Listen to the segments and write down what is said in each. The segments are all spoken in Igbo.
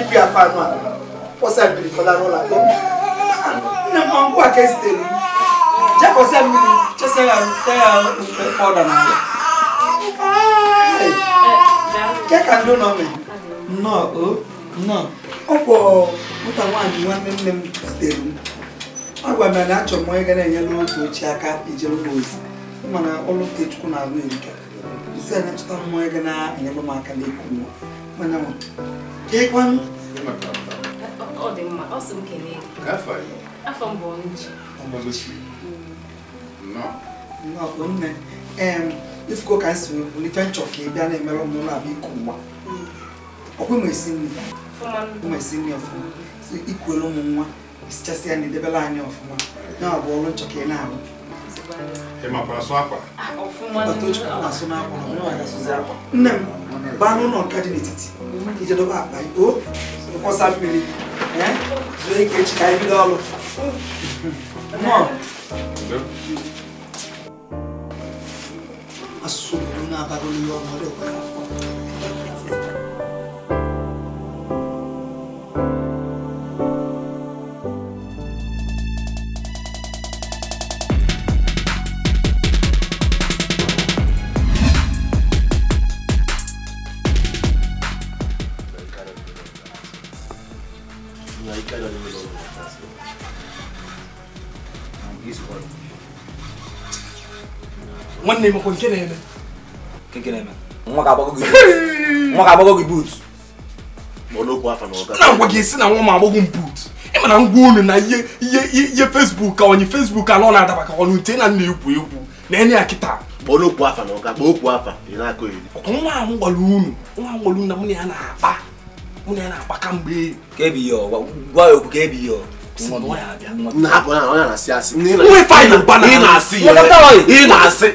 ibi afọ anụ a kpọsa mmiri ụlọ akpọ nne m aka ya ọ ka ndị ụlọ nnọọ o nnọọ ọ nwaanyị nwanne nne m zitere ọ gwa m na achọrọ m onye na-enyere otu aka ijere m ozi mana na-arụ erika isi anya chọta m Jekwanụ. Ọ dị mma, ọ sị m kelee Afọ Afọ m mm. Nnọọ. nne. Ee, ifuko ka si nchọ ka ị bịa na-emere ụmụ na-abịa iku nwa. Ọkwa ma esi nri. Ọma esi nri ọfụma. Mm. Ikuelu ụmụ nwa, isichasị ya na anyị ọfụma. bụ ọrụ nchọ ị na-arụ. Ah, não. Não nne não, baa n'ụlọ nka dị não ijedobe não, o nkwọsa Você zuo ike echi não, anyị bido ọrụ asụsụ obodo na não n'ihe ọma ọ dị ụka nwanne m nke na-eme nke na-eme nwa ga-agbago gị buut na agwa esi na nwa m agbagọ m buut boot na ngwa unu na ihe ihe fesbuk ka onye fesbuk anọ na-adaba ka ọnụ nte na nna egwu egwu na enye ya kịta nwa ahụ gwara unu na mụ na ya na-akpa mụ na na-akpa kamgbe ị na-asị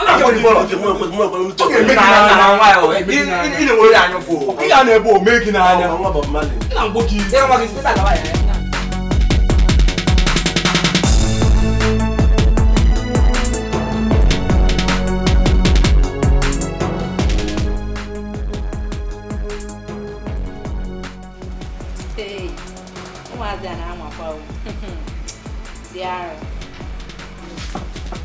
Iya na-ebe ome gị n'anya. Ee,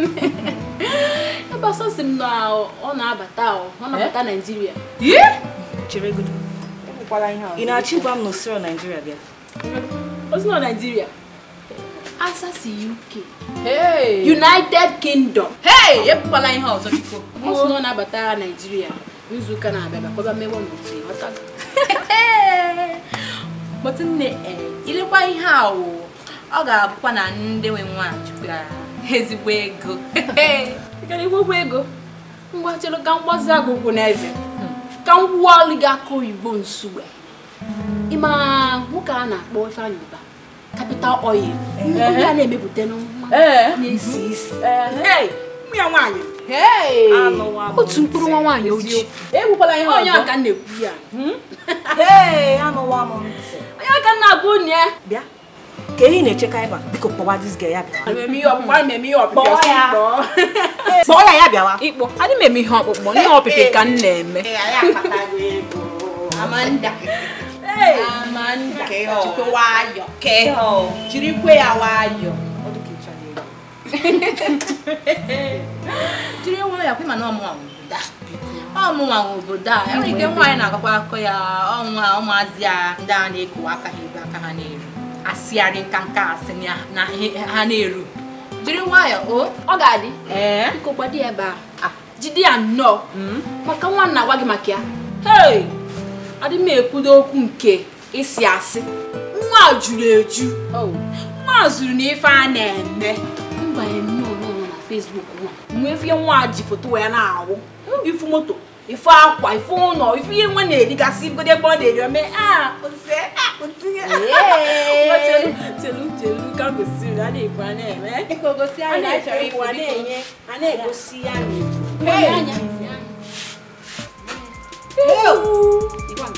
ebe ọsọ si m na ọ na-abata ọ na-abata eh? Naịjirịa ị na-achọ ịgwa m na osiro Naịjirịa bịa osiro Naịjirịa asa si UK United Kingdom ekwukwala ihe ọzọ biko ọ sị na ọ na-abata Naịjirịa n'izuụka na-abịa bakọba mmewe n'otu ịghọta eh, ilekwa ihe a ọ ga-abụkwa na ndị nwe nwa chukwu ezigbo ego gara iwegwu ego mgbachere ka mgbazi agụgwụ na ka m gwụwa ọlụ gị oyibo nsuwe ịma nwoke a na-akpọ Ifeanyi Uba kapital oil a na-emepụta na isi ya nwaanyị otu mkpụrụ nwa nwaanyị ojii e onye aka ekwu ya hmm? onye aka onye ka enyi na-echeka ịba biko kpọwa dis ya bịawa ya ya bịawa adị m eme ihe ọkpụkpọ ihe ọpịpị ka m na-eme jirikwe ya jiri nwa ya kwe na ọmụnwa ọmụnwa obodo a enwere ike nwaanyị na-agakwa akọ ya ọnwa ụmụazị ya ndị a na ekowa aka ha ebe aka ha na asịgharị nkanka asị na ha na-eru jiri nwayọọ o ọ ga-adị biko gbado dị ebe a ah, jide ya nnọọ hmm? maka nwa nna agwa gị maka ya hei adị m ekwudo okwu nke ịsị asị nwa juru eju oh. nwa zuru na ife a na-eme mgbanye nnọọ na Facebook nwa nwee fie nwa ji foto wee na-awụ oh. ifu moto ife akwa ife ụlọ ife ihe nwa na-erigasị igodo ebe ọ na-eri ome chelu ka gosiri a na-ebu a na-eme a na-enye a na-egosi ya nke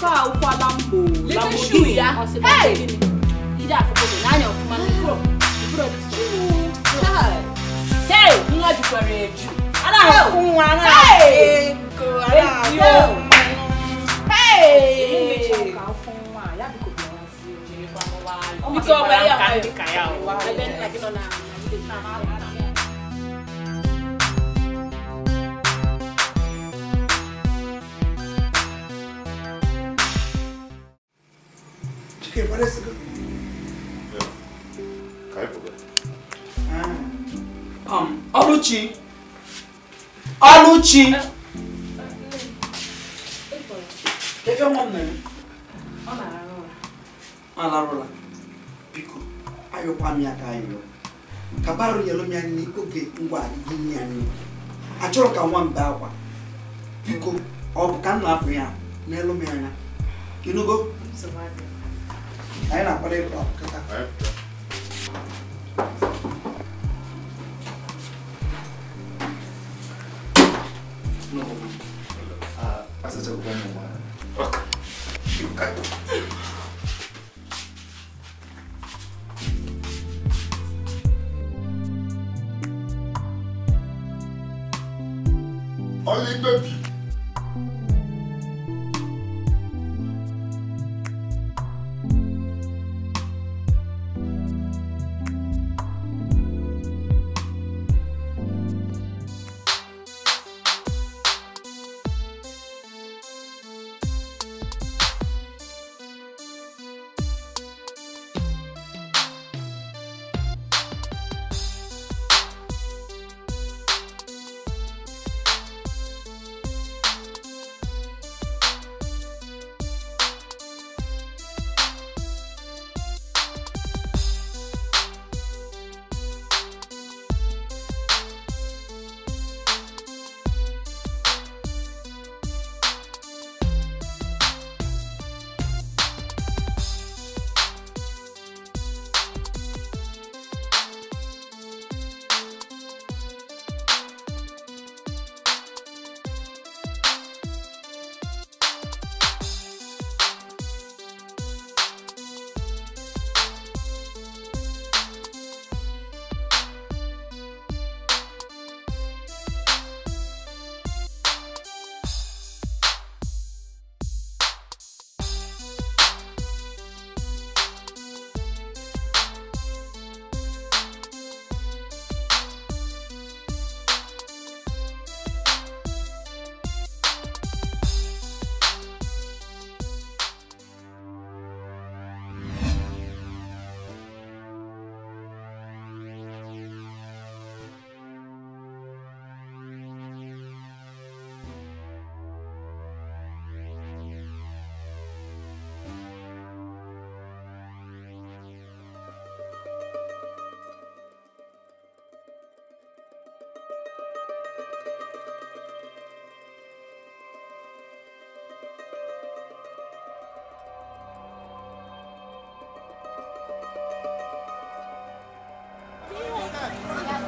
a ụkwala mbụ lambu ya ide afụkọ n'anya ọfụma n'ụkpụrụ nwa jukwara eju máa fún wa náà èèkò aláàbò èmi mi ṣe ọkà fún wa yàtọ̀ kò bí wọn sí ìjìnlẹ̀ pamọ́ wa. ọmọ sí ọmọ ẹ̀yà ọmọ ẹ̀yà ọmọ ẹ̀yà ọmọ ẹ̀yà. Chicken, what is it? Yeah. Kai Boga. Ah. Um, Oluchi. Ọlụchi efe nwa m na-eme ọ larụla biko ayọkwa m ya ka ayọ ka barụ yelụ m ya nri oge ngwa gịnye nri anyị achọrọ ka nwa m bee akwa biko ọ bụ ka m na-apụ ya n'elu m anya ịnụgo anyị na-akwado ịkwa akụkọta. 这个功能。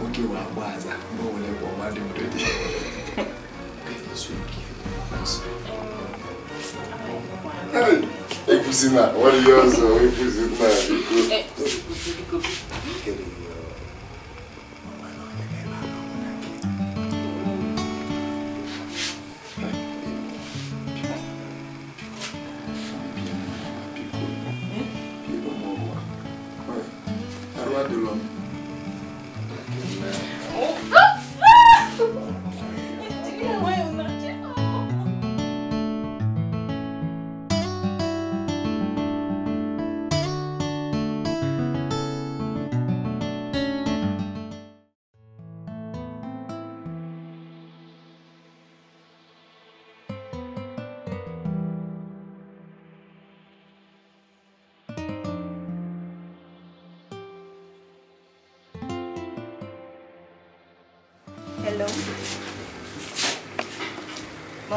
Ukiwa kwanza mbona ulepo mwalimu Dodi? Ipusina, waliyozo, ipusina. Ipusina.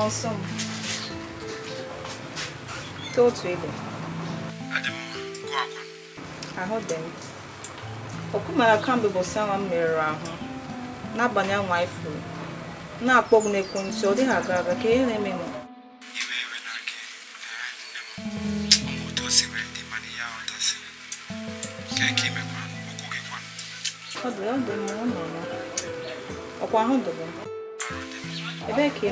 ọsọ m te otu ebe ahụ dị m ọkụmara kamgbe bụ anwa m merụrụ ahụ n'abalị nwa ifuru na-akpọ ọgwụ n'ekwentị ọ dịghị aga aga ka ihe na-eme m ọ dị ọ dị m ọ nọ ọkwa ahụ dị m ebee ka ị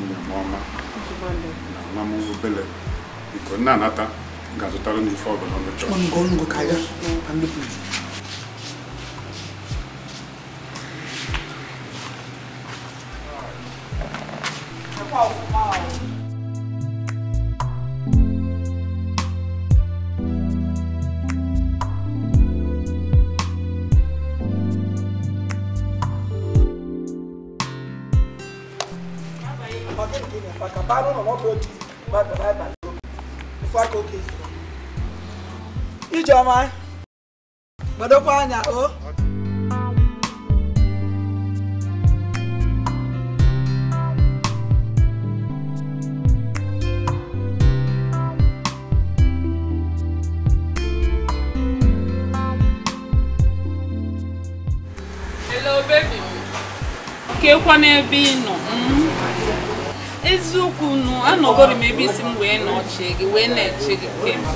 nna m ọma na nwa m anata ga-azụtara m ife ọbụla ọ anyị gbadokwa anya o kekwa n'ebe ị nọ hmm? eziokwu nụ anọgoro m ebe isi m wee nọchie gị wee na-eche gị kemgbe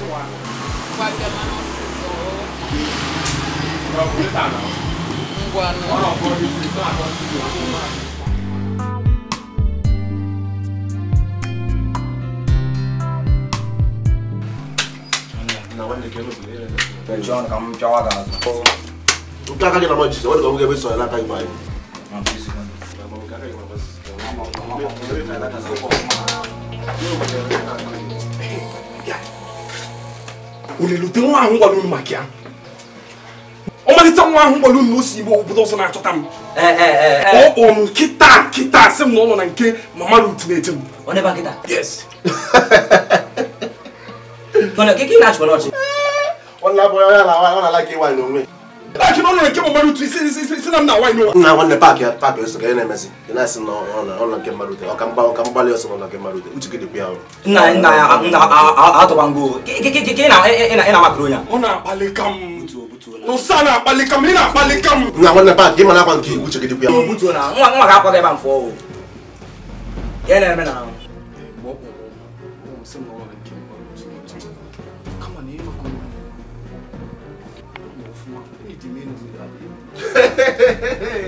John kam chawa da. Ukaka kina maji, wadi kamuge biso ọmalite nwa ahụ gbara unu osi igbo obodo ọzọ na-achọta m ọkpọ eh, eh, eh, m kịta kịta m na na nke mama rut na m na nke na na na na ya na ọ na ka m nsana apalikam ni na apalikam. nga wọn napa di mana kwan kii wuce gidi kuya. o butu na nwa nwa ka akɔ kɛ ban fɔ o yɛlɛ yɛlɛ bɛ na. Hehehehe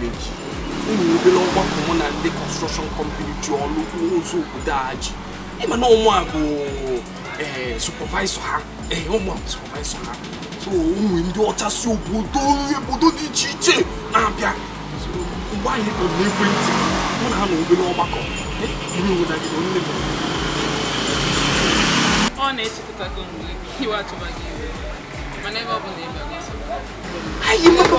village unu obere ọgbakọ mụ na ndị construction company ji ọlụ nwozu obodo a ịma na ụmụ a bụ supervisor ha ee ụmụ a bụ supervisor ha so ụmụ ndị ọcha si obodo nri obodo dị iche iche na-abịa mgbe anyị kpọrọ n'ekwentị mụ na ha na obere ọgbakọ ime obodo gị na onye bụ ọ na-echekọta gị mgbe iwe atụba gị iwe mana ebe ọ bụla ebe gị anyị mmadụ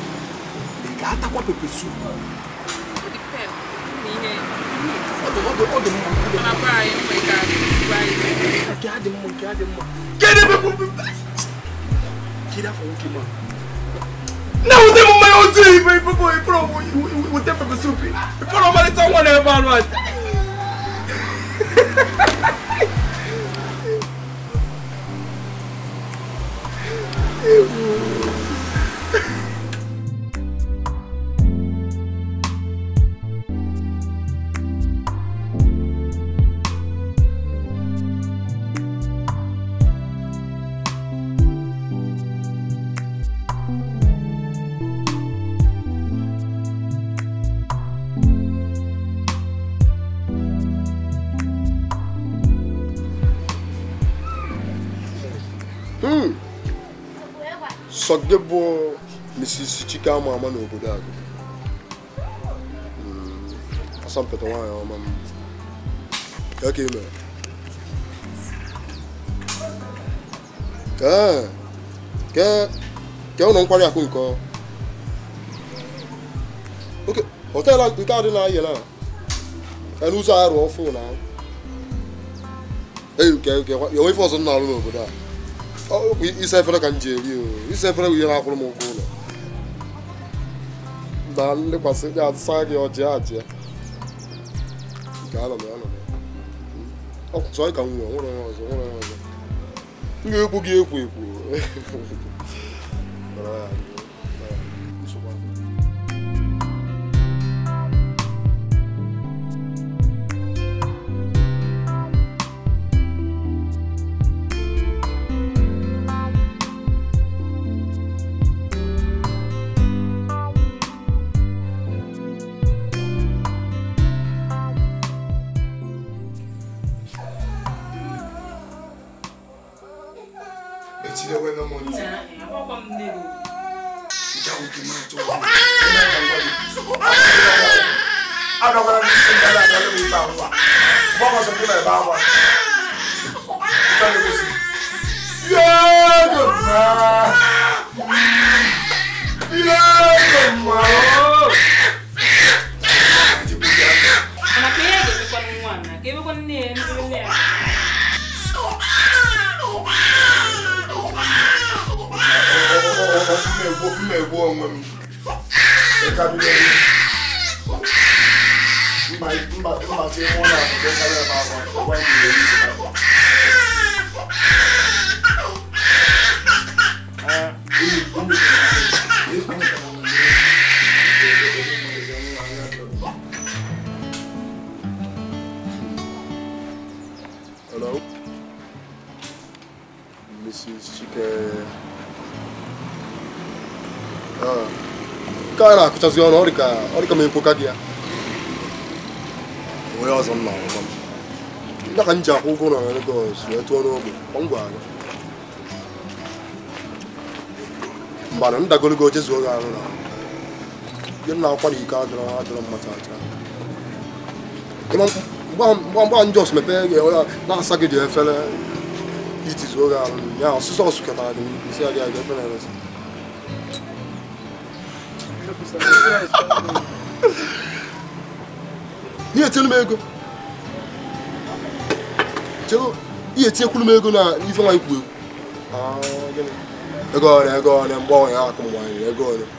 atakwa pepe soup. It depends. na wute mu mayi otu ibe ipopo ipro wute pepe soup ifọrọ ọmalịta nwa na-ebe anụ aja ewu Ọsọgide bụ Mrs. Chike ama ama n'obodo a hmm, asọmpụta nwaanyị ọma m ka ke ụlọ nkwari akụ nke họteelụ nke a na ayela n'ụzọ arụ ọfụ na ife ọzọ n'obodo a Oh, isa e ka m ji eri o isa bụ ihe na-akwụrụ m ụgwọ ụlọ na nlekwasị gị asa gị ọjị ajị nke anọ m ka m nwere onye ọzọ nwere ọzọ m ekwu gị ekwu ekwu mmebu onwe m ịkabidoro mgbazi ime ụlọ akwụkwọ karịa ebe akwa ngwa nyere isi na nke ah. a na ọnụ ọ dịka m gị ya onye ọzọ nna nna ka m akwụ ụgwọ na Lagos wee tụọ n'ogbe gwara na akwụkwọ na na-asa gị ji ya ọsụsọ ọsụ ketara gị nsị ya gị aga ihe etinu m ego chego ihe etinyekwuru m ego na ife nwa ikwu egwu ego ọrịa ego ọrịa mgbe ọnwa ya akụ nwanyị ego ọrịa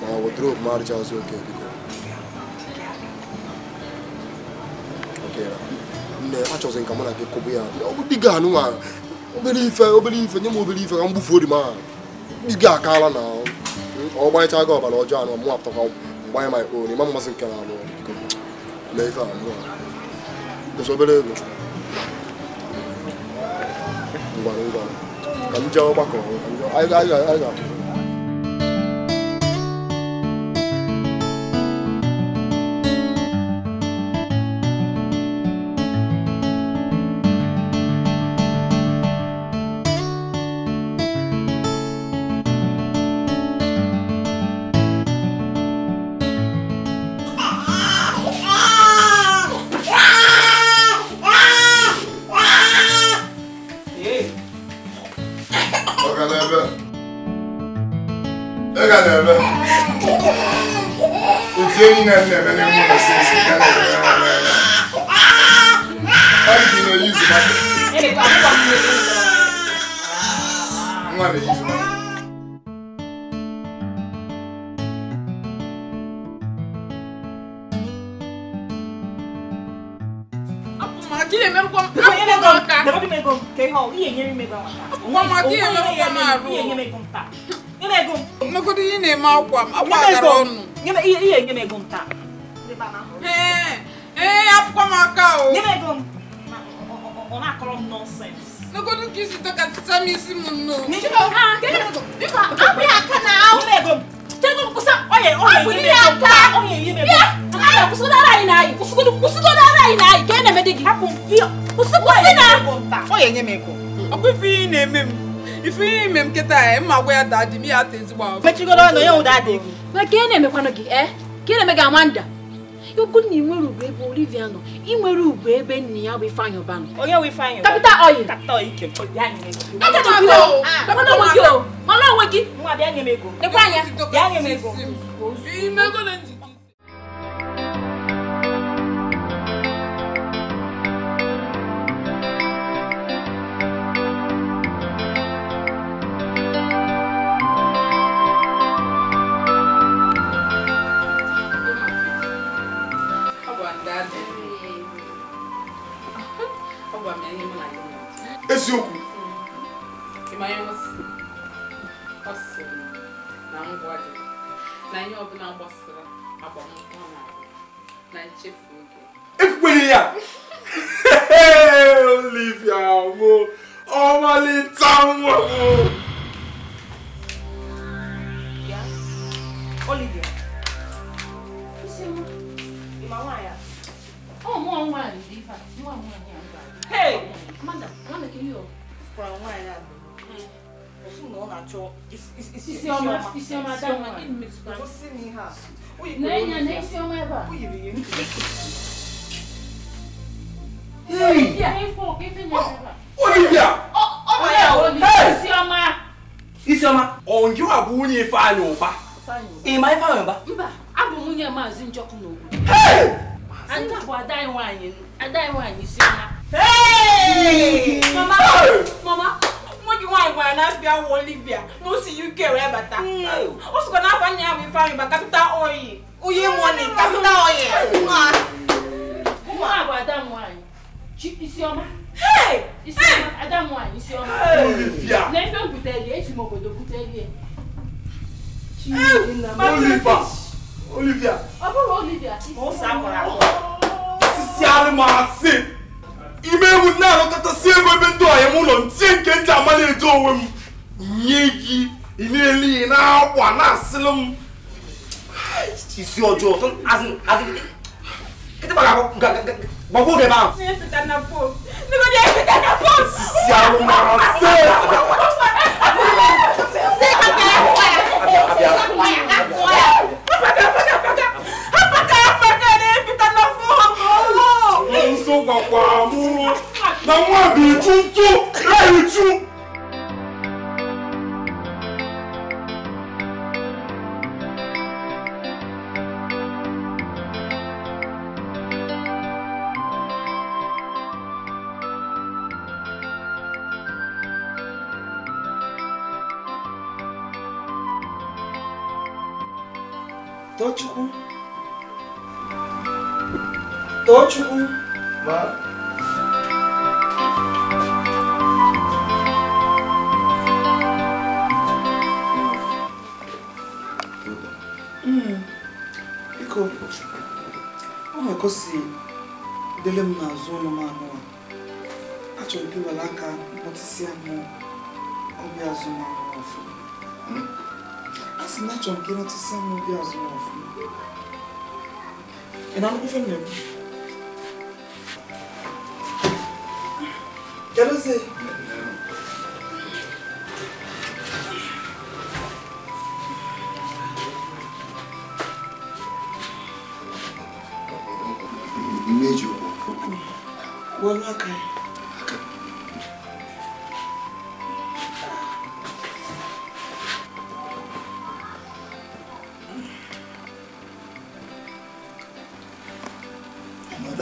ma wodrob ma arụcha azụ oke biko nne achọzi nka mụ na gị kụbụ ya ọ bụ diga anụ nwa obere ife obere ife nye m obere ife ka m gbufuo di m aha diga akaala na ahụ ọgbanyecha gị ọbara ọjọọ anụ mụ apụtakwa mgbanye ma ikpo n'ime mmasị nke na abụọ mee ife abụọ ụzọ obere ego ngwara ngwara ka m jee ọgbakọ anyị ga-apụ nkịta ya mma gwa ya daa di ya ata ezigbo ahụ mechigoro ọnụ ya ụda adịghị ma ka ị na-emekwanụ gị ee eh? ka ị na-eme gị amanda okwu na inwere ugwu ebe Olivia nọ inwere ugwu ebe nna ya bụ Ifeanyị Ụbanụ onye bụ Ifeanyị Capital Oil Capital Oil ike mana onwe gị mana onwe gị nwa bịa nekwa anya bịa nye m ego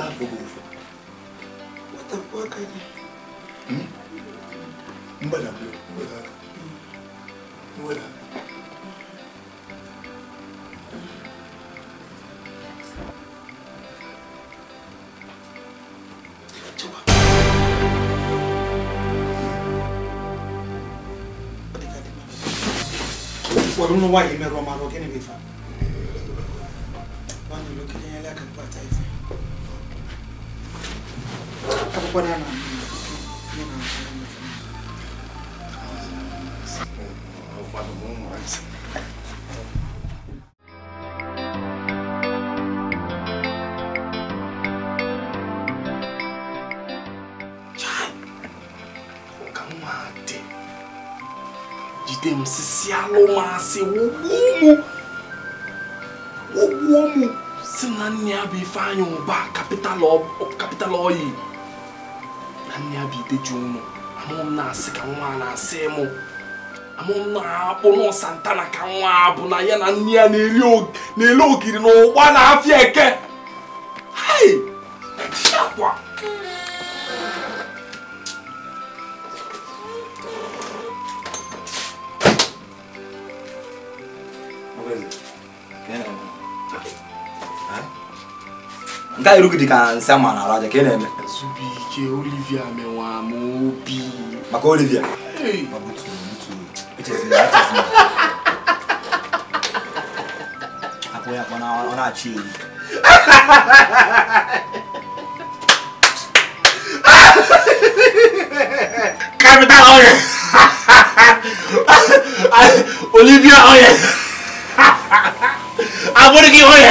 avubuvu watakuwakanye hmm? mbala mbala mbala wari uno wayemerwa maro kenebefana Ifeanyị ụba kapital oyi na nne ya bụ ideji ụmụ amụọ na-asị ka nwa na-asị mụ amụ m na-akpụ na ka nwa bụ na ya na nne ya na-ele ogiri na ụgba na afịa eke irugidi dika nsema na raja ka ina ke Olivia wa mobi. Maka Olivia. Hey. Mabutu mtu. It is not it is not. ya kona ona chini. Capital oye. Olivia oye. Aboniki oye.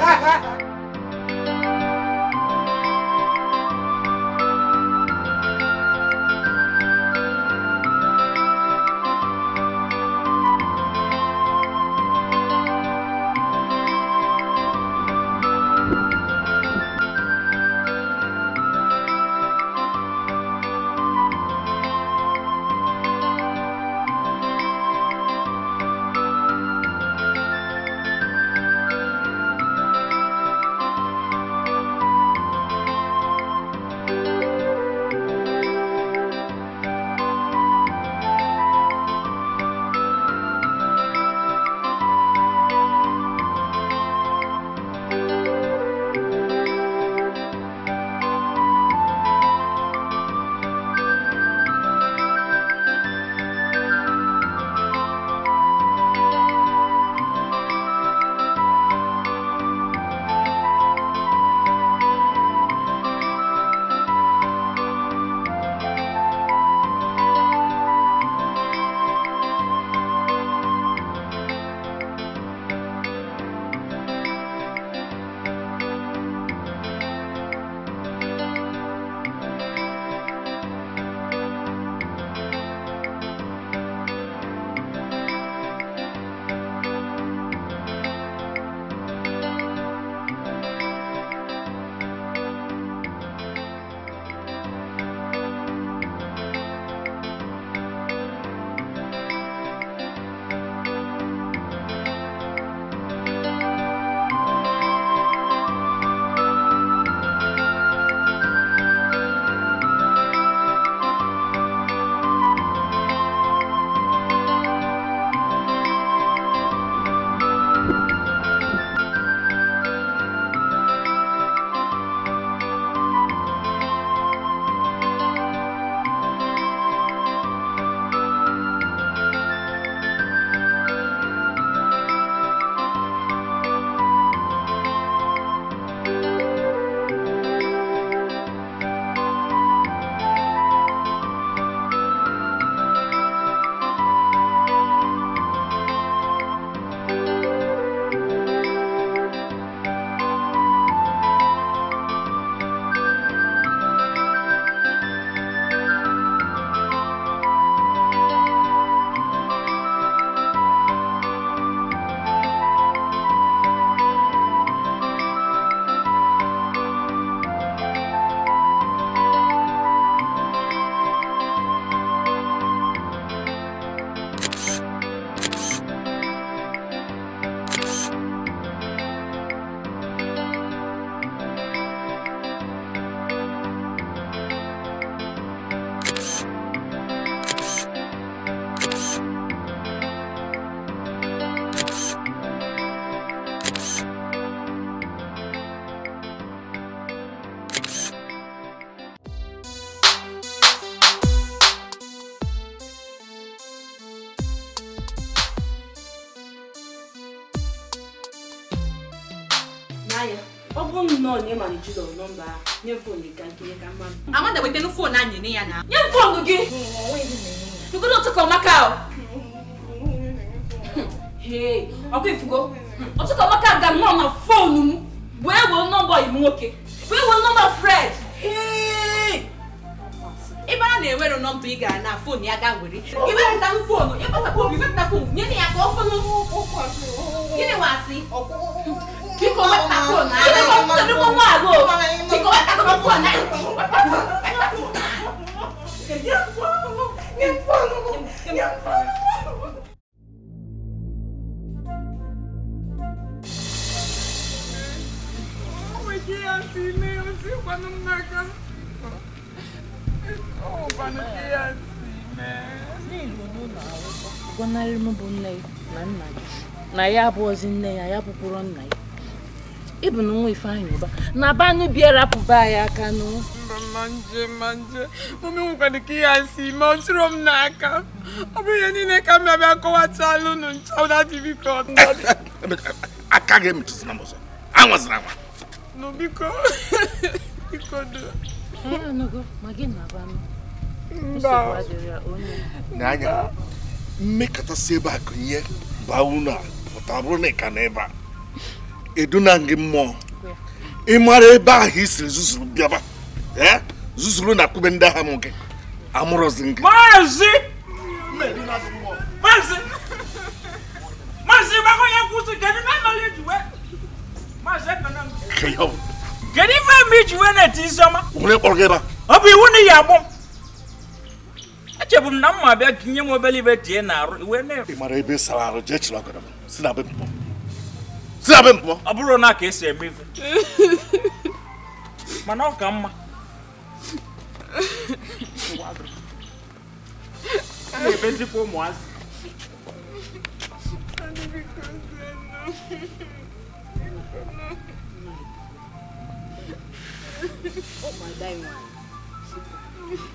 nọ nye mara jizọ nọmba nye foonu ga nkiri ka mmadụ amanda wetenu foonu anyị nye ya na nye m foonu gị n'ogodo ụtụka ọmaka o na banu biara pụba ya aka manje manje mụme nwekwara ka ihe asị ma ọ tụrụ m n'aka ọ bụ ihe niile ka m bịabịa kọwachala unu aka gị emetụsịna m ọzọ anwa nụ biko biko do ma gị na banụ mba n'anya mmekọtasị ebe a gụnye baa unu a pụta bụrụ na ị ka na ebe a eduna gị ị mara ebe ahụ i siri zuzuru bịaba eh? zuzuru na kube ndị agha m gị amụrụzi gị maazị maazị maazị gbakọnye e kedu na nọrọ ijiwe maazị na-eti isiọma onye kpọrọ gị ebe ọ bụ iwu na iyi agbụ m echebu m na m bịa ka inye m obere ibe tie na arụ iwe na-ere ị ebe sara arụ jee chịrị ọgọdọ si na be si abe mpọ. ọ bụrụ na ka esi eme ife mana ọ ka mma na-ebezikwa ụmụazị ụmụ ada nwanyị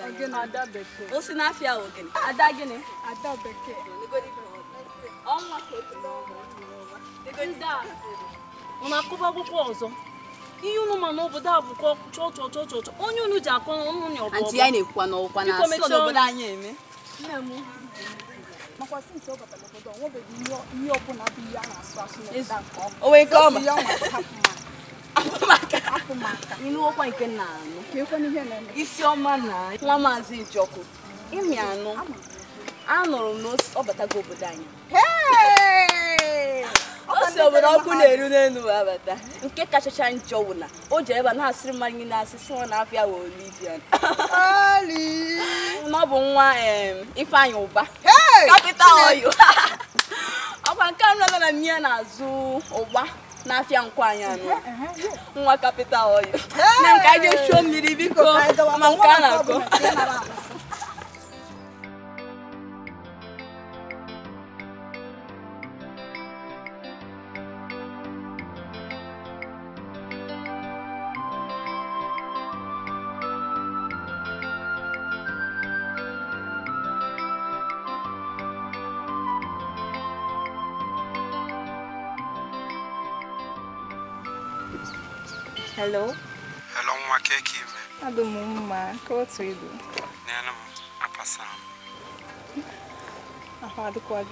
ọ n'afịa wo gịnị ada gịnị ada ọ na-akụba akwụkwọ ọzọ ihe unu ma n'obodo a bụkwa chọchọchọchọ onye unu ji akọ n'ọnụ nya ya na-ekwukwa na na asọ n'obodo anyị eme nne m makwa ọ ọ nwebeghị ihe ọbụla bụ ihe a na hapụ maka ịnụọkwa nke na anụ e isioma na nwa maazị Ijoku ịmị anụ anụrụ m na ọ batago obodo anyị o si obodo ọkụ na-eru n'elu abata nke kachacha njọ wụ na o ji ebe a na-asịrị mmadụ niile asị sị nwa na-afịa wụ Olivia na ọ bụ nwa Ifeanyị Ụba kapịta ọyụ ọkwa nke anụ na nne ya na-azụ ụgba n'afịa nkwanya nwa kapịtal ọyị na nke a ga-echuo mmiri biko ma nke a na-akọ Hello? Hello, nwa ka eke ime? Adụ m mma, ka otu ibu. N'elu m, apasa m. Ahụ adịkwa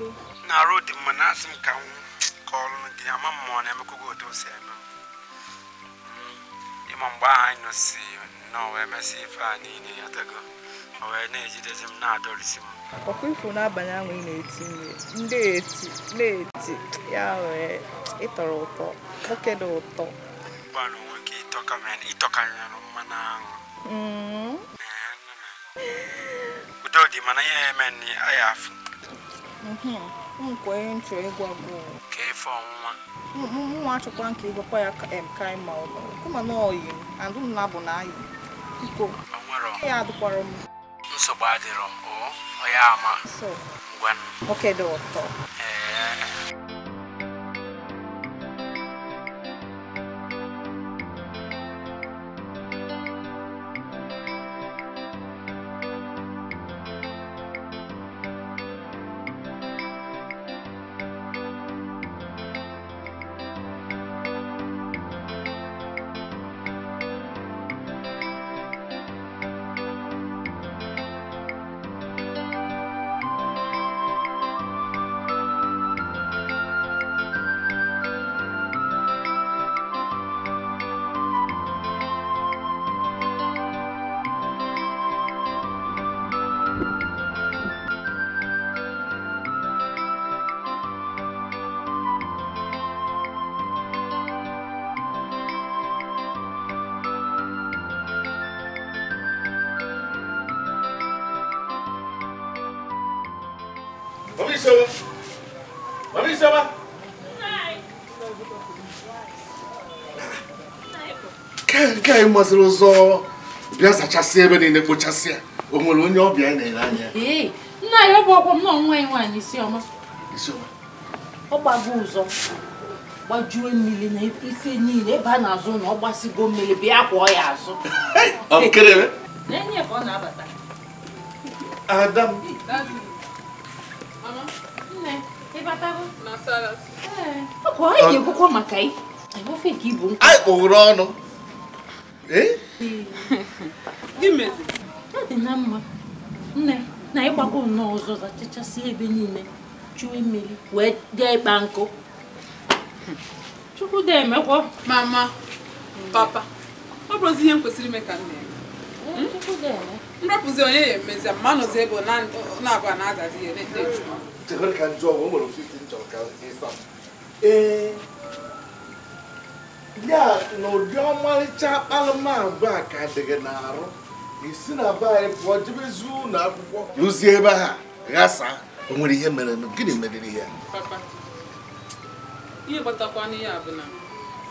Na-arụ dị mma na asị m ka ama m na-emekwago otu o eme m. Hmm, mgbe anyị nọsi na o ife a niile ya tego. ọ wee na-ejidezi m na ahụ ị na-eti ụtọ, ụtọ. gọọmenti ịtọkanyere mmanụ ahụ udo dị mana ihe eme nri aya afụ nkwenye nchọ ịgwa bụ ka ọnwụnwa nwa achọkwa nke kwa ya ka ma ụlọ kuma na oyi adụ m na bụ na ayị adịrọ ọ ya ama oke dị ụtọ ee masịrị ụzọ bịa zachasị ebe niile kpochasịa o nwere onye ọbịa na ere anya nna ya ọ bụ ọkwọ m na ọnwa ya nwaanyị isioma ọ gbago ụzọ gbajuo mmiri na ife niile ebe a na-azụ na ọ gbasigo mmiri bịa kwụọ ya azụ n'enye ka ọ na-abata ada m ọ ka ọ yi ekwukwo maka anyị ofe ka ibu nkụ anyị kpụrụ ọnụ Eh? ọ dị na mma nne na ịgbakọ nnọọ ọzọ zachachasị ebe niile chụwa mmiri wee dee ịkpa nkụ chukwu dị emekwọ mama papa ọ bụrụzi ihe m kwesịrị ime ka nne hmm? nrapụzi onye ya emezi ma nọzi ebe na-abụ na-azazi ihe na-eju ee ya na ụdị ọmarịcha akpalamagwa a ka dị n'arụ isi na ba anyị pụọ jebezi ụlọ akwụkwọ rụzie ebe ha ghasaa o nwere ihe mere gịnị meriri ya ihe kpatakwana ya bụ na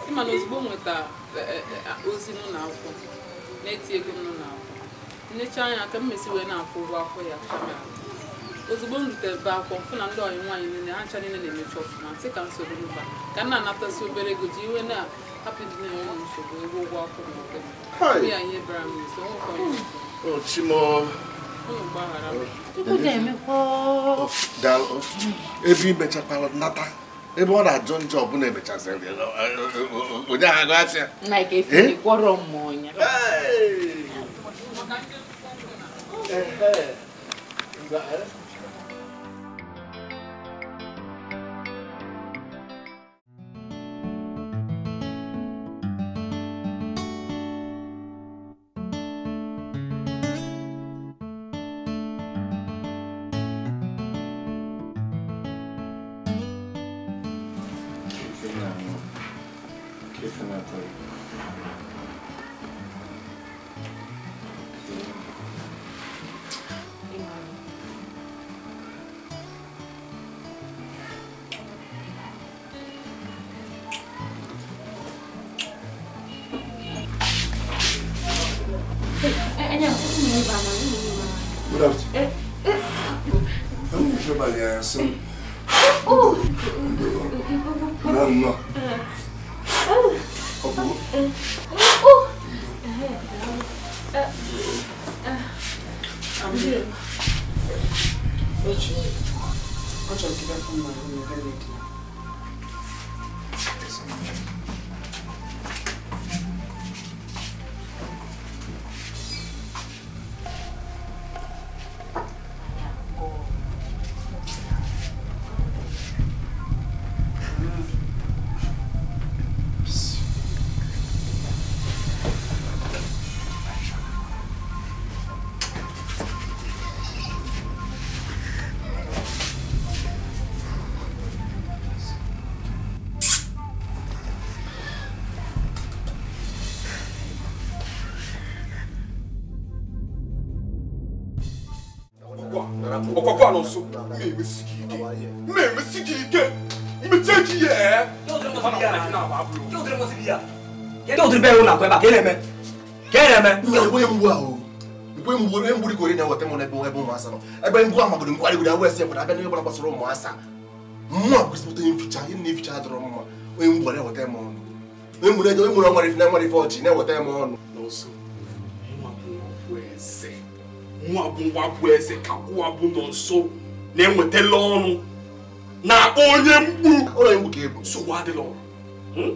ịma na ozugbo nweta e, e, e, ozi n'ụlọ akwụkwọ na-eti ego n'ụlọ akwụkwọ nnecha anya ka mmesi wee na-akwụ ụgwọ akwụkwọ ya ozigbo m be akwụkwọ mfụ na ndị ọyị nwaanyị niile ha ncha niile na-emechi ọfụma sị ka soro mba ka m na-anatazi obere ego ji iwe na ebe imechakwara nata ebe ọ na-ajụ njọ ọbụla emechaziri eh, eh, eh, onye ahụ ya ɔkɔkɔ ano nso me me sigi ike me me sigi ike me ki yɛ. dɔwɔtiri bɛɛ y'o na kɔɛ ba k'e lɛmɛ k'e lɛmɛ. nka ebo ye n bu awo ebo ye n bu ebo ye n bu de k'o de ɲɛ wa tɛmɛ na ebo ebo ma sa nɔ ebo ye n bu a ma gɔdɔ n kɔ ale wuli awo ɛsɛ fɔlɔ abɛ ne bɛ bɔra ba sɔrɔ mɔ a sa mɔ a gosi tɛ n fica e ni fica dɔrɔn mɔ o ye n bu ale wa tɛ mɔ o ye mun ye mun ye mɔri fɛ mɔri fɛ o ci ne wa tɛ mɔ o. mụnwa bụ nwa eze ka ụwa nọ nso na enwetela ọnụ na onye mkpu ụlọ egwu ka ebu nsogbu adịla ọrụ hmm?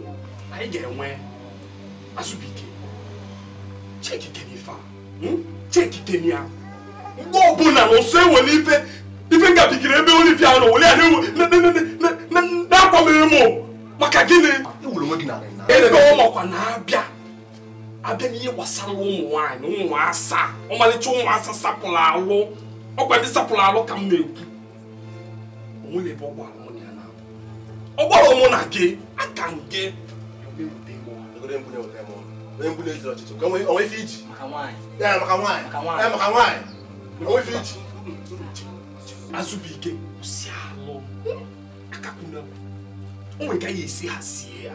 anyị ga-enwe azụbike chekike n'ife hmm? a mgbe ọbụla na nso enwere ife ife ebe na-akwa m maka gịnị ebe ọ makwa na-abịa abịa n'ihe gbasara ụmụ nwaanyị ụmụ asaa ọmalịcha ụmụ asaa sapụrụ alụ ọgwa ndị sapụrụ alụ ka m na-ekwu onwere bụ ọgbara mụ ya na-abụ ọgbara ụmụ na gị aka nke si alụ ya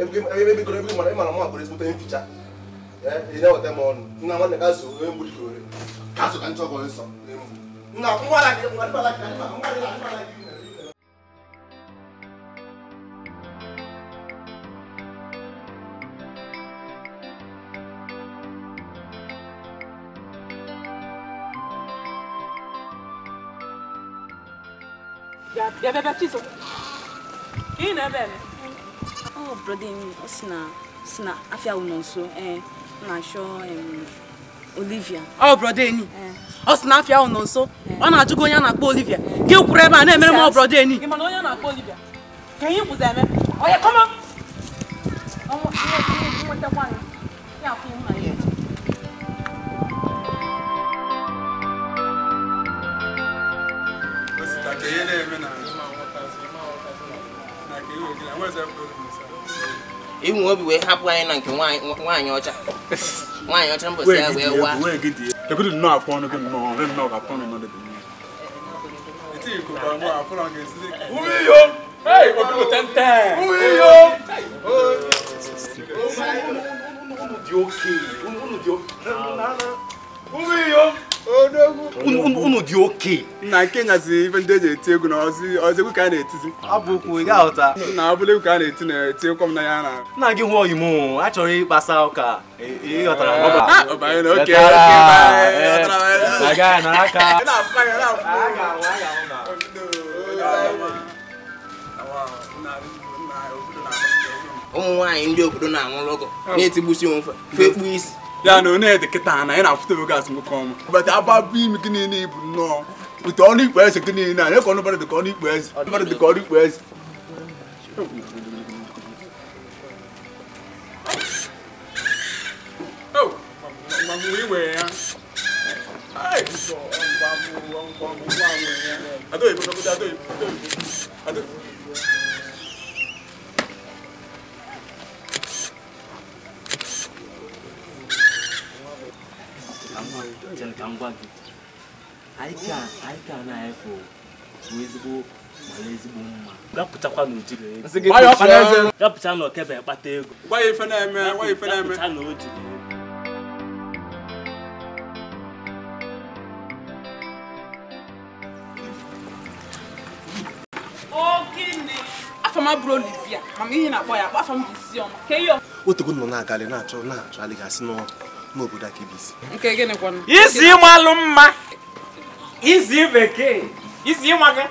ebikoro ebiko mana ịmara mụ akpọrọ ezigbote mficha ị na-eweta m ọnụ nna nwanne ka so onye eh, mgbu dịka ore ka so ka nchọ ọgọ nsọ nna nwa ala gị nwa dịbala gị na nwa dịbala gị bịa bịa bịa chisom ka ị na-ebe eme Oh, brother mi, um, o si na si na afia wo eh na sho Um, Olivia. Oh, brother ni. Eh. O oh, si eh. na afia wo nso. Ọ na ajụgo onye na akpọ Olivia. Gị kwuru ebe a na-emere m brother ni. Ị ma na na Olivia. Ka ihe kwuzi eme. Oh, come on. Oh, yeah, come on. Yeah, come on. Yeah, come on. Yeah. ka ihe na-eme na ewu obi wee hapụ anyị na nke nwaanyị ọcha nwaanyị ọcha mbọsi ya wee waa ekudu nnọọ afọ ọnụ gị nnọọ ọrụ nnọọ afọ ọnụ nọdụ dị Umiyo! Hey, Obibo tenten! unu dị oke nna nke nyazi ibe ndị eji eti egwu na ọzọ egwu ka a na-etizi abụ okwu ị ga na abụla egwu ka a na-eti na-eti ekwe m ya na nna gị hụọ imo a chọrọ ịkpasa ụka ịghọtara oh, oh, oh, ụmụ nwaanyị ndị obodo na-anwụrụ ọgọ na-etigbusi yana onye dị kịta ha na ya na-afụta oge asị m kọọ m bata aba bụ imi gị niile bụ nnọọ bute ọnụ ikpe eze gị niile anyị ka ọnụbara dịka ọnụ ikpe eze ọnụbara dịka ọnụ ikpe eze Adoy, adoy, adoy, adoy. chere ka m gwa gị anyị ka na-efe bụ ezigbo mara ezigbo mma bịapụtakwa na ojiri na kpata ego bịapụta na otogo nọ na agali na-achọ na-achọ alịgasị n'ọrụ n'obodo aka ibisi isi ịmalụ mma isi bekee isi ịmaga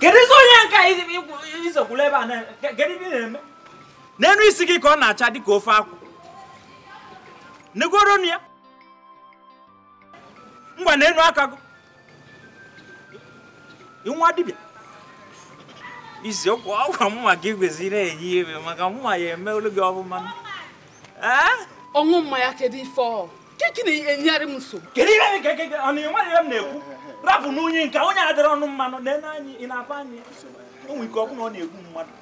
kedu isi onye nka izokwula ebe a kedu ebe ị na-eme n'enu isi gị ka ọ na-acha dịka ofe akwụ negoronu ya ngwa n'enu aka gị nwa dibịa iziokwu ọgwa mma gị kwesịrị enye iwe maka mma ya eme emeolu gị ọfụma ee ọṅụ mmanya kedu ife ọ kiki na-enyegharị m nsogbu kedu ihe nke gị ọ na enweghị ihe m na-ekwu rapụ n'unyi nke onye adịrị ọnụ mmanụ na-ene anyị ị na anyị onwe ike ọ bụla ọ na-egbu mmadụ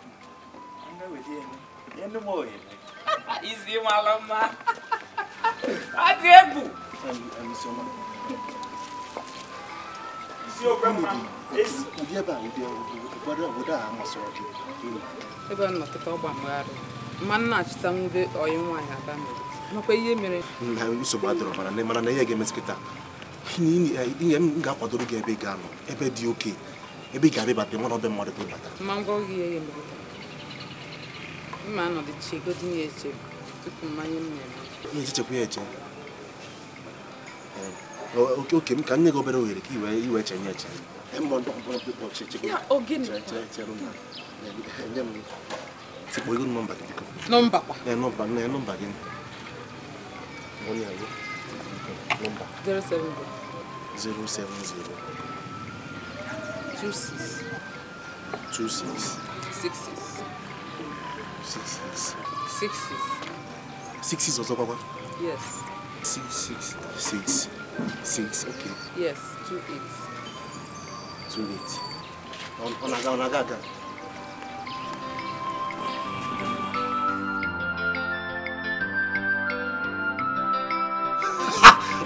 izi mara mma ọ egwu ebe a ọgba mgbaghara mma nna achịta nwube oyi nwaanyị mere nakwa ihe mere na nsogbu adọrọ mara na mara na ihe ga-emezi taa ihe m ga-akwadoro gị ebe ga-anọ ebe dị oke ebe ị ga-abịa bata mana ọbịa mmadụ bata ma ngwa ihe mere mma anọdụ echechekwa ya eche ehm, oke oke m ka nye gị obere ohere ka iwe eche nye eche tikpo ego nọmba gị biko nọmba gị wọ́n ní àyè nọ́mbà. zero seven zero. zero seven zero. two six. two six. six six. six six. six six. six six ọ̀sán pápá. yes. six six six six okay. yes two eight. two eight. ọ̀nà ọ̀nà àga ọ̀nà àga àga.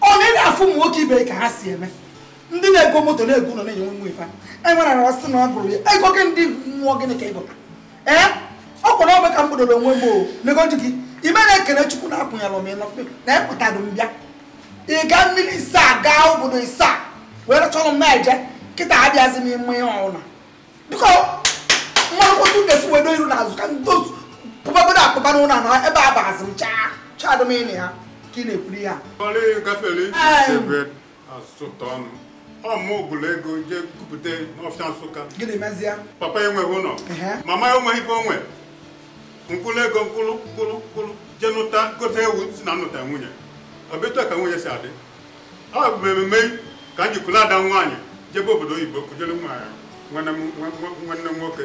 onye na afụ ụmụ nwoke ibe ka ha si eme ndị na-ego moto na-ego nọ na-enye nwe ife e ara sị na ọ bụrụ ya ego gị ndị nwụọ gịnị ka ị ee ọ kwụrụ ka m kpodoro onwe m o nego gị na ekene chukwu na akwụnyere m na ịpụtado e m bịa ị ga mmiri isaa gaa obodo isaa wee rachọrọ m na-eje nkịta abịazi m ime ihe ọwụla biko mmanụ wedo iru na ka ndị otu akpụba ebe a bazi m chaa chadụ m ịnị ha ka ị na-ekwuri ya gafere ọmụ ego jee kupụta n'ọfịa Nsụka papa enweghị ụlọ mama ife onwe nkwụrụ ego mkpụrụ nkwụrụ nkwụrụ jee nụta gote ewu si na nnụta nwunye obetu ka nwunye si adị ọ bụ ememe ka m jikwuru ada nwaanyị jebe obodo oyibo kujere nwaanyị nwanne m nwoke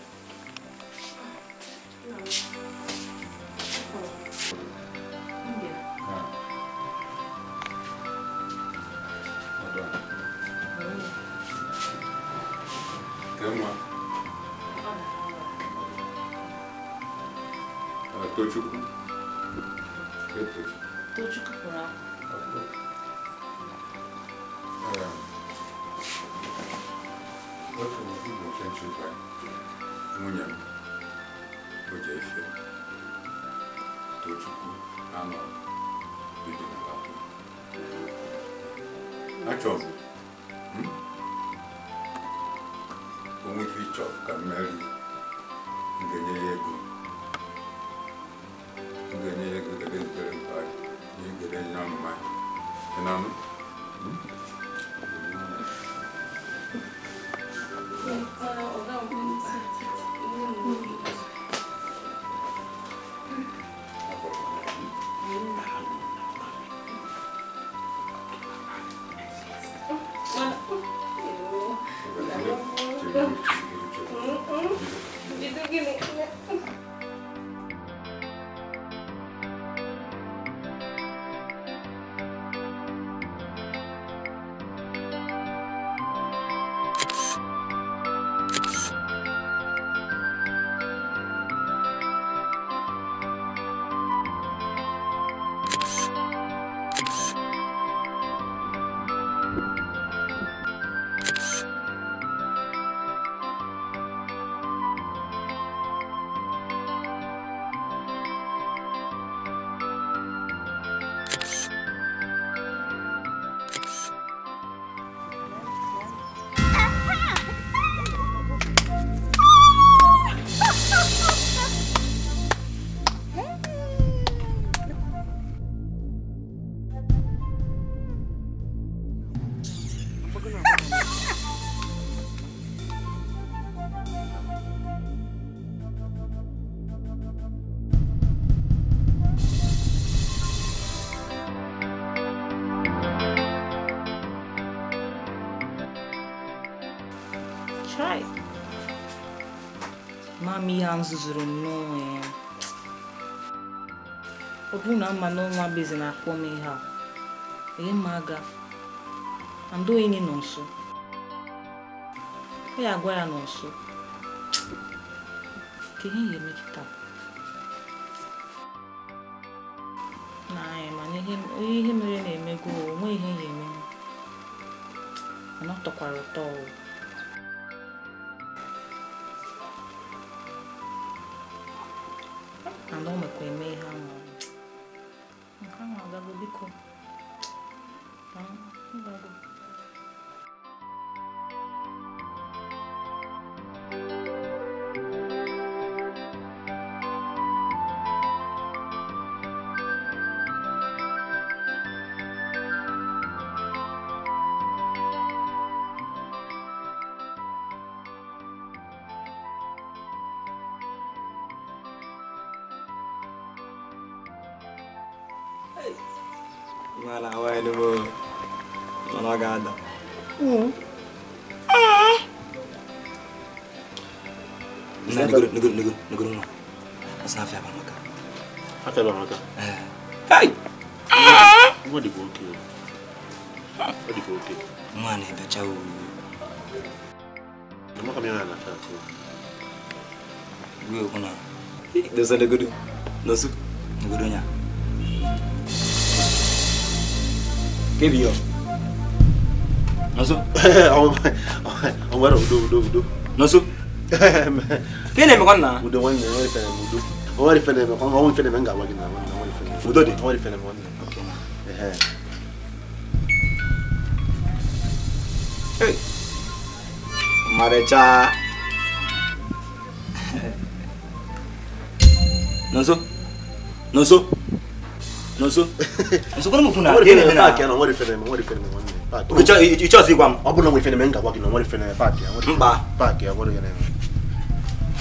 tema Tochukwu Tochukwu pụrụ akwụkwọ otu bụ nke nchekwa nwunye m oje ife Tochukwu anọ bido na akwụkwọ achọbụ ife ịchọ ka m ga-enye ya ego m ga-enye ya ego debe ntere mpa na mma ihe a m zụzụrụ m n'onwe ya ọ bụrụ na mma na ọnwa bezi na-akpọ m ihe a ihe ma aga andị onye nọ nso ọ ya agwa ya nọ nso ka ihe ga-eme kịta n'anya ihe mere na-emego onwe ihe ga-eme mana ọ tọkwara ụtọ ọwụ nigga, nigga, nigga don't know. That's not fair, Mamaka. How fair, C'est Hey! What did you okay? What did you okay? Mwane, un u. Mamaka miyana na un Wewe kuna. Dosa nigga un Nosu. Nigga do nya. Kebi yo. Nosu. Omwara udo un udo. Nosu. Nosu. ke ne me konna mudo wani ne wani fene mudo wani fene me konna wani fene me nga wagi na wani wani fene mudo de wani fene me wani okay eh eh marecha nonso nonso nonso nonso kono mufuna ke ne me na ke na wani fene me wani fene me wani Icho icho sigwam. Abuna mwifene menga wagi na wali fene pati ya. Mba. Pati ya wali ya nene.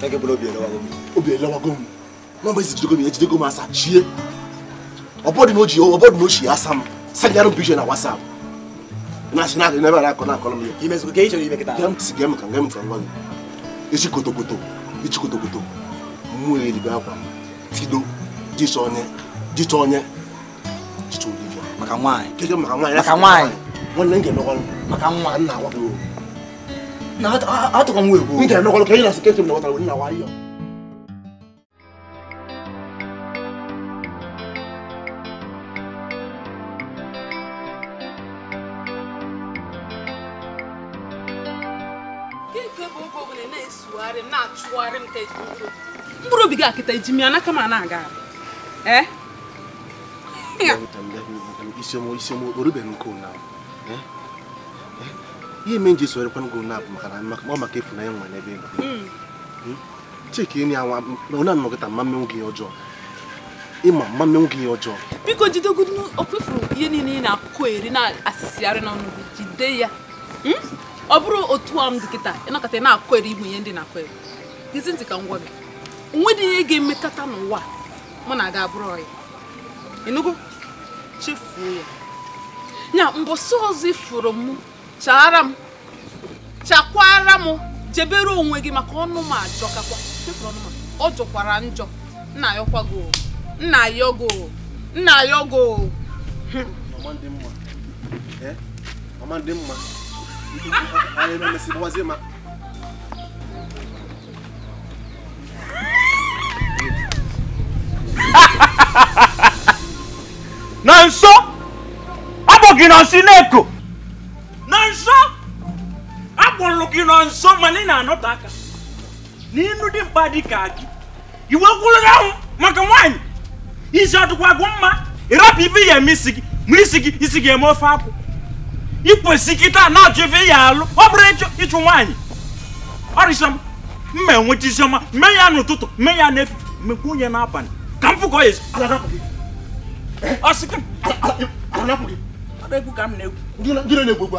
kẹ́kẹ́ bọ́lá obìnrin lọ́wọ́ gómìnà obìnrin lọ́wọ́ gómìnà wọ́n bẹ́ẹ̀ sì jíde gómìnà jíde gómìnà asa ṣíye ọ̀bọ́dì n'ojì ọ̀bọ́dì n'ojì asa mu sanjaru bishọ na wasa mu na ṣe náà ẹ̀nẹ́bà You kọ́ náà kọ́ lọ́mọ yẹn. You kò kéyìí ṣe ìmẹ̀ kẹta. gẹ́m sì gẹ́m kan gẹ́m fún ọgbọ́n ichi kotokoto ichi kotokoto mú èrìgbé akwa tido jíṣọ onye jíṣọ onye jíṣọ olivia. maka nwaanyị. kejọ maka nwaanyị. maka nwaanyị. nwanne m ga-emekwa maka nwa nna agwa na atọ ka m wee gbuo nke nọkọrọ ka ị na seketịrị na ọtara na wayo mkpụrụ obi gị akịta eji m ya n'aka ma na-aga ee isiokporubeghị nke ụnyaahụ ihe eme nji sorekwan gị na abụ maka ọ maka efu na ya nwere n'ebe ego hmm. hmm? chike enyi anwa na anọkịta mma mmenwu gị ọjọọ ịma mma mmenwu gị ọjọọ biko jidegodu ọkpefuru ihe niile ị na-akụkọ eri na-asịsịgharị n'ọnụ gị jide ya hmm? ọ bụrụ otu a m dị kịta ịnọkọta ị na-akụ eri igbe ihe ndị na-akụ eri gịzi ntị ka ngwa gị onwe dị ihe ga-emekọta n'ụwa mụ na aga abụrụ ọya ịnụgo chefuo ya ya mbọsị ọzọ ifuru m chara m chakwara m jebere onwe gị maka ọnụ m kakwa ọ jọkwara njọ nna ya ọkwago nna ya ogo nna ya ogo eh? na nso ọ ma na nso nsi na-eko na nso akpọrọ gị na nso mana ị na-anọte aka n'inu dị mkpa dị ka gị iwe gwụrụ ahụ maka nwaanyị isi ọdụkwa gwụ mma ịrapụ ibe ya eme isi gị mụrụ isi gị isi gị eme ofe akwụ ikwesị kịta na achọ ife ya alụ ọ bụrụ ịchụ ịchụ nwaanyị ọrịsịọma mma enweta isiọma mee ya n'ụtụtụ mee ya n'efu mekwa onye n'abalị ka m fụkọ ya ọsị ka m na-ekwu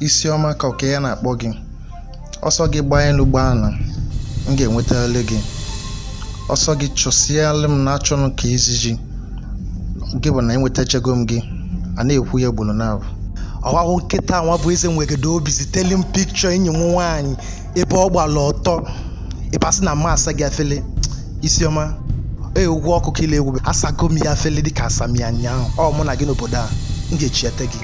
isiọma ka oke ya na-akpọ gị ọsọ gị gbaa elu gbaa ala m ga-enwetali gị ọsọ gị chụsịalụ m na-achọnụ ka iziji gị bụ na enwetachego m gị a na-ekwu ya gburu na ọwawo nkịta nwa bụ eze nwegodo obi ziteli m pikchọ enyi m nwaanyị ebe ọ gbara ọtọ ịbasị na mma asa gị afele isiọma ee ụgwọ ọkụkọ ile egwu asago m ya afele dịka asam ya nyaahụ ọ mụ na gị n'obodo a m ga-echiete gị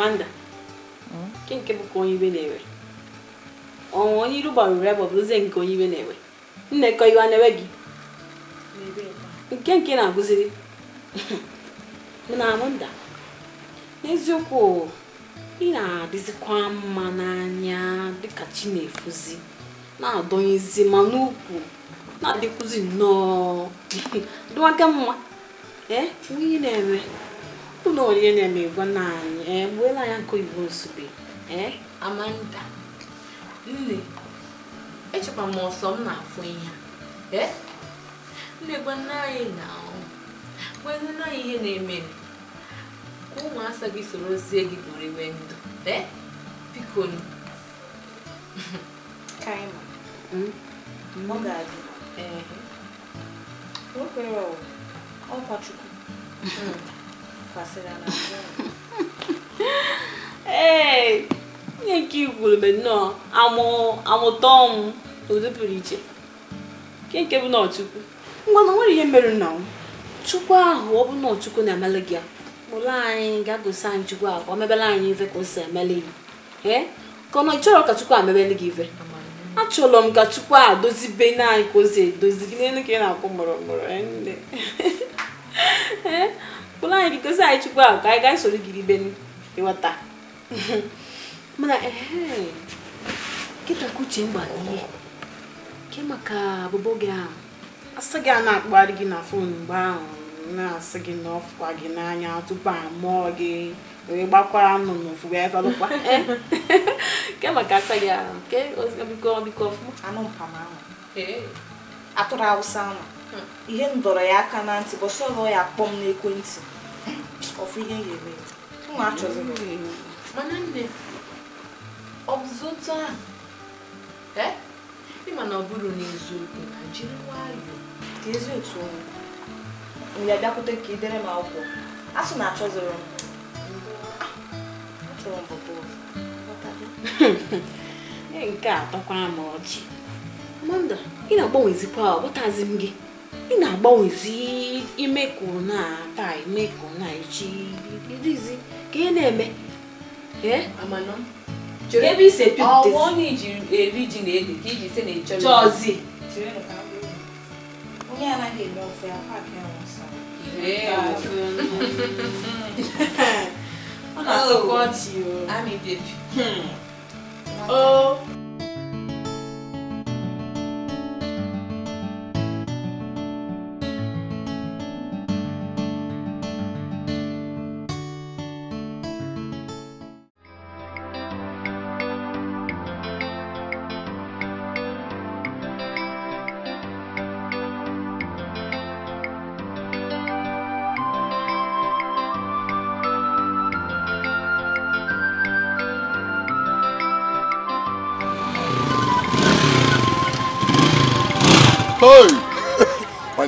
Amanda nke nke bụ ka onye iwe na-ewe ọnwụ onye iru gbarụrụ ya gbabụrụzie nke onye iwe na-ewe nnekọ iwe na-ewe gị nke nke na-agụziri na Amanda n'eziokwu ị na-adịzikwa mma n'anya dịka chi na-efuzi na-adọnyezi ma n'ukwu na adịkwuzi nnọọ dịwaka mma ee onye na-eme ụlọ oriri na eme egwo na anyị ee eh, ya nke oyibo nsugbe ee eh, amanda nne echekwa m ọsọ m na-afụ ihe eh? nne gwa nna anyị na gwanne anyị ihe na-eme ka ụmụasa gị sorozie gị bụrụ iwe ndụ ee biko kaima hmm? ọ ọkwa chukwu hmm. ee ihe nke ikwuru igwurube nnọọ amụta ọnwụ na ụdị pụrụ iche nke nke bụ n'ọchukwu. chukwu ngwa na nwere ihe mere nna m chukwu ahụ ọ bụ n'ọchukwu na-emele gị ụlọ anyị ga-agosi anyị chukwu ahụ ka ọ mebere anyị ife ka o si emele gị ee ka ọ nọ ka chukwu amebele gị ife achọrọ m ka chukwu a dozibe naanị ka o si edozi gị n'elu ka ị na-akwụ mụrụmụrụ ụlọ anyị bikozi anyị chukwu ahụ ka anyị gaa soro gị ibe ịghọta mana ee kịta ka uche mgba n'ihe ke maka abụbọ gị ahụ asị gị a na-akpụgharị gị na fon mgbe ahụ na-asị gị na ọfụkwa gị n'anya tupu a mụọ gị wee gbakwara nụ n'ofu wee falụkwa ke maka asa gị ahụ ke biko biko ọfụma anụ mpama ahụ atụrụ awụsa ahụ hmm. ihe m dọrọ ya aka na ntị bọsọ ya akpọ m n'ekwentị ọfụ ihe ga-eme nna achọzi mana nne ọ ịma na ọ bụrụ n'eziokwu na jiri nwayọọ ezi otu mgbe ka m akwụkwọ asụ na achọziri achọrọ m bụbụ nke a m ọchị ọ bụtazi gị ị na-agbanwezi ime ka ụna taa ime ka ụna echi irizi ka ị na-eme ebe isi ọnwụ onye iji eri ji na ede ka iji se na chọzi onye anaghị eme ofe akwa aka ya nsa ọ na-atọkwa ọchị o ami bebi hmm. o oh.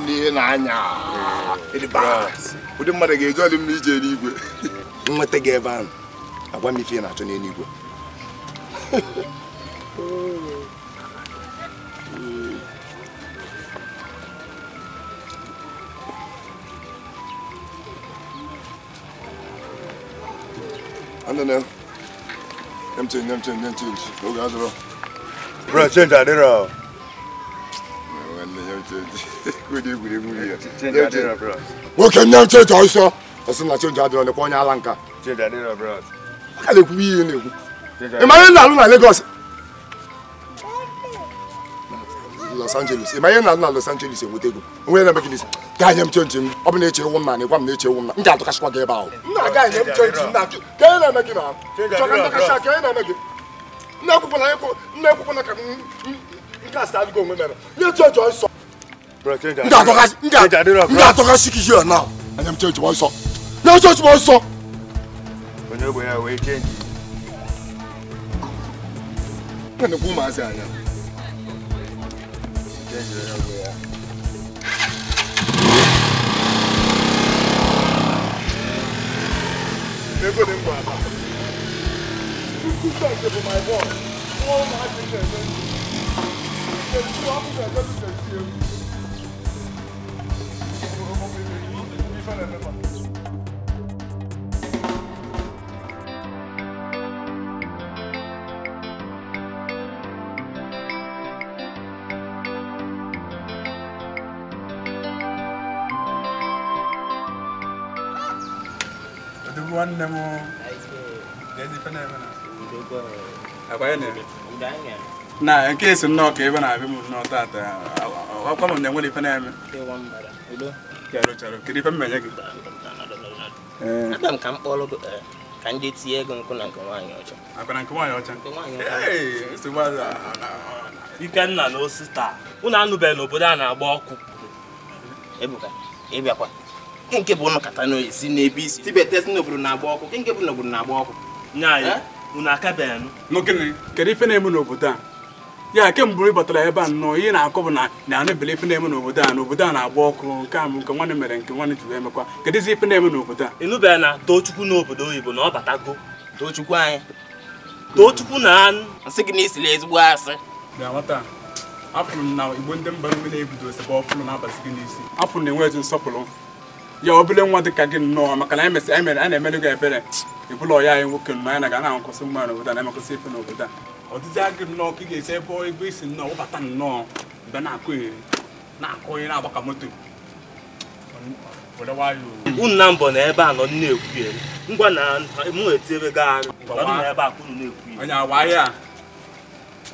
n'ihe na-anya ụdị mmadụ ga-eji ọdị mma ije n'igwe nweta gị ebe ahụ agwa m ife na-achọ n'eluigwe Bro, change adịrọ nwoke nne m cheji ọsọ ọsị na chenji adịrọ nekwa onye ala nka aka na-ekwube ihe na-ekwu ị ihe na-alụ na Lagos Los Angeles ị ihe na-alụ na Los Angeles enweta ego onwe na Megilis gaa nye m chenji m ọ bụ na eche ewu m na m na-eche ewu m na m ga-atụkasịkwa gị ebe ahụ ka nke a sị adịgo onwe mere nye chenji ọsọ ndị atọka sik hia na anya m chechi nsọ nye chechi nsọ onye ogbe ya wee chenji na-ekwu ụmụazị anya chenji onye ogbe ya ego dị mgbe ala Thank you for my boss. All my business. Eh? There's two officers that eh? you can see. one and the one. nwanne m na nke esi nnọọ ka ebe na-abịa m nnọọ taata akwa m na enwere ife na-eme kedu ife mmenye gị eh. ka m kpọrọ eh, ka ndị tinye ego nkụ na nke nwaanyị ọcha ikenna na anụbeghị n'obodo a na-agba ọkụ ebuka ịbịakwa nke bụ ụnụ kata n'oyisi n'ebe isi tibetesi n'obodo na-agba ọkụ nke bụ n'obodo na-agba ọkụ ya eh? akabeghị nụ kedu ife na-eme n'obodo a ya kemgbe ị batara ebe a nnọọ ihe na-akọ bụ na na-anụbele ife na-eme n'obodo a n'obodo a na-agba ọkụ nke a nke nwanne mere nke nwanne ji emekwa mekwa kedụzi ife na-eme n'obodo a ịnụbeghị na Tochukwu n'obodo oyibo na ọ batago Tochukwu anyị Tochukwu na anụ nsị gị na ezigbo asị m na igbo ndị mba na-ebido ọfụrụ gị n'isi na-enwe ezi nsọpụrụ ya obele nwa ka gị nnọọ maka na a na-emere gị ebere ọya anyị nwoke na ga na-akwụsị n'obodo a na-emekwụsị ife n'obodo a ọdịdị agị nnọọ ka ị ga-esi ebe ebe isi nnọọ wụbata nnọọ mgbe na-akụ eri na-akụ eri na-agbaka moto unu mbọ na ebe a nọ na-ekwu eri ngwa na mụ ebe a ka na-ekwu onye awa ahịa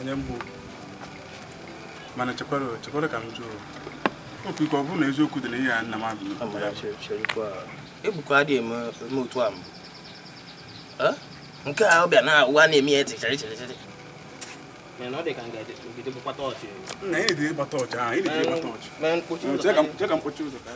onye mbụ mana chekwara ka m ọ bụrụ na eziokwu dị na ihe a nna m mana ọ dị ka ngide gbakwata na-edire gbata ọchị ahụ ị na-edire gbata ọchị chee ka mkpochi ụzọ ka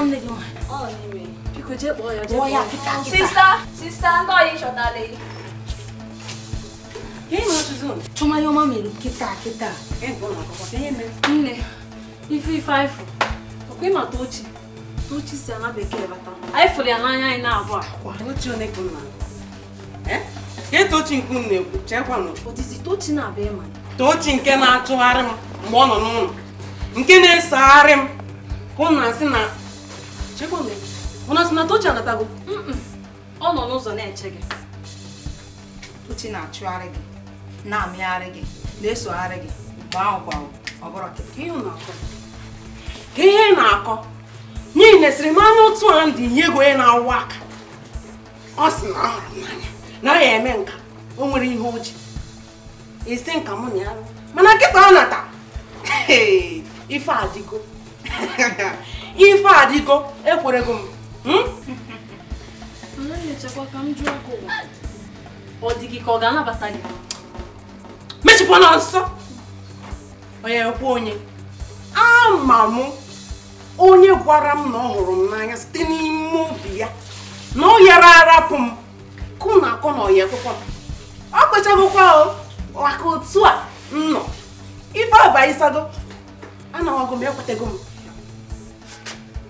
one lady one. Oh, anyway. Pico je boy, je boy. Sister, sister, ndo yi shota le. Yeye ma tuzun. Chuma yo ma melu kita kita. Eh, bona kwa kwa yeye me. Nne. Ifi five. Okwe ma tochi. Tochi si ana bekele bata. Ai fuli ana anya ina abua. Kwa tochi one kuna. Eh? com tochi nkun ne ku chekwa no. na be ma. Tochi na atụgharị m mgbe ọ nọ na-esegharị Com ka Jekome, ọ na-asị na Tochi anatago? Ọ nọ n'ụzọ na-eche gị. Tochi na-achụgharị gị, na-amịgharị gị, na-esogharị gị, mgbe ahụ ọ bụrụ ka ihe na-akọ n'ihi na esiri otu a nye ego na aka ọ sị na ya eme nka o nwere ihe o ji esi nka mụ na ya mana nkịta ọ nata ife ife adịgo ekwerego m hmm? ọ dị ka ọ ga-anabata gị mechikwa na nsọ onye ekwe onye ama m onye gwara m na ọ hụrụ m n'anya site n'ime obi ya na ọ yara arapụ m kụ na akọ na ọya ekwekwa m ọ kpechagokwa maka otu a m nọ ife abaịsago anaghọgo m ekwetago m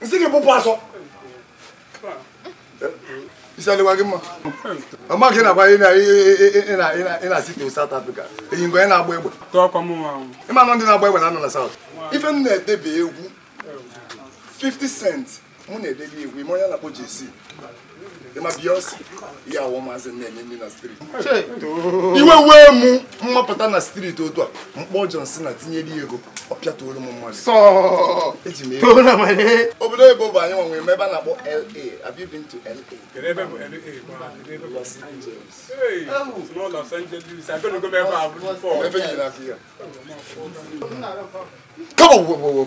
nsị gị bụpụ asọ isi adịkwa gị mma ọma gị nakwa ị na-asị ka South Africa eyi ngwe na-agba egbe ịma nọ ndị na-agba egbe na anọ na South ife m na-edebe egwu 50 cent mụ na-edebe egwu ime onye na-akpọ JC ma iwe wee mu mmapụta na street otu a mkpọ johnson na tinyere ego ọpịa toro m mmadụ obodo oyibo bụ anyị nwanwe ebe a na-akpọ la have la Come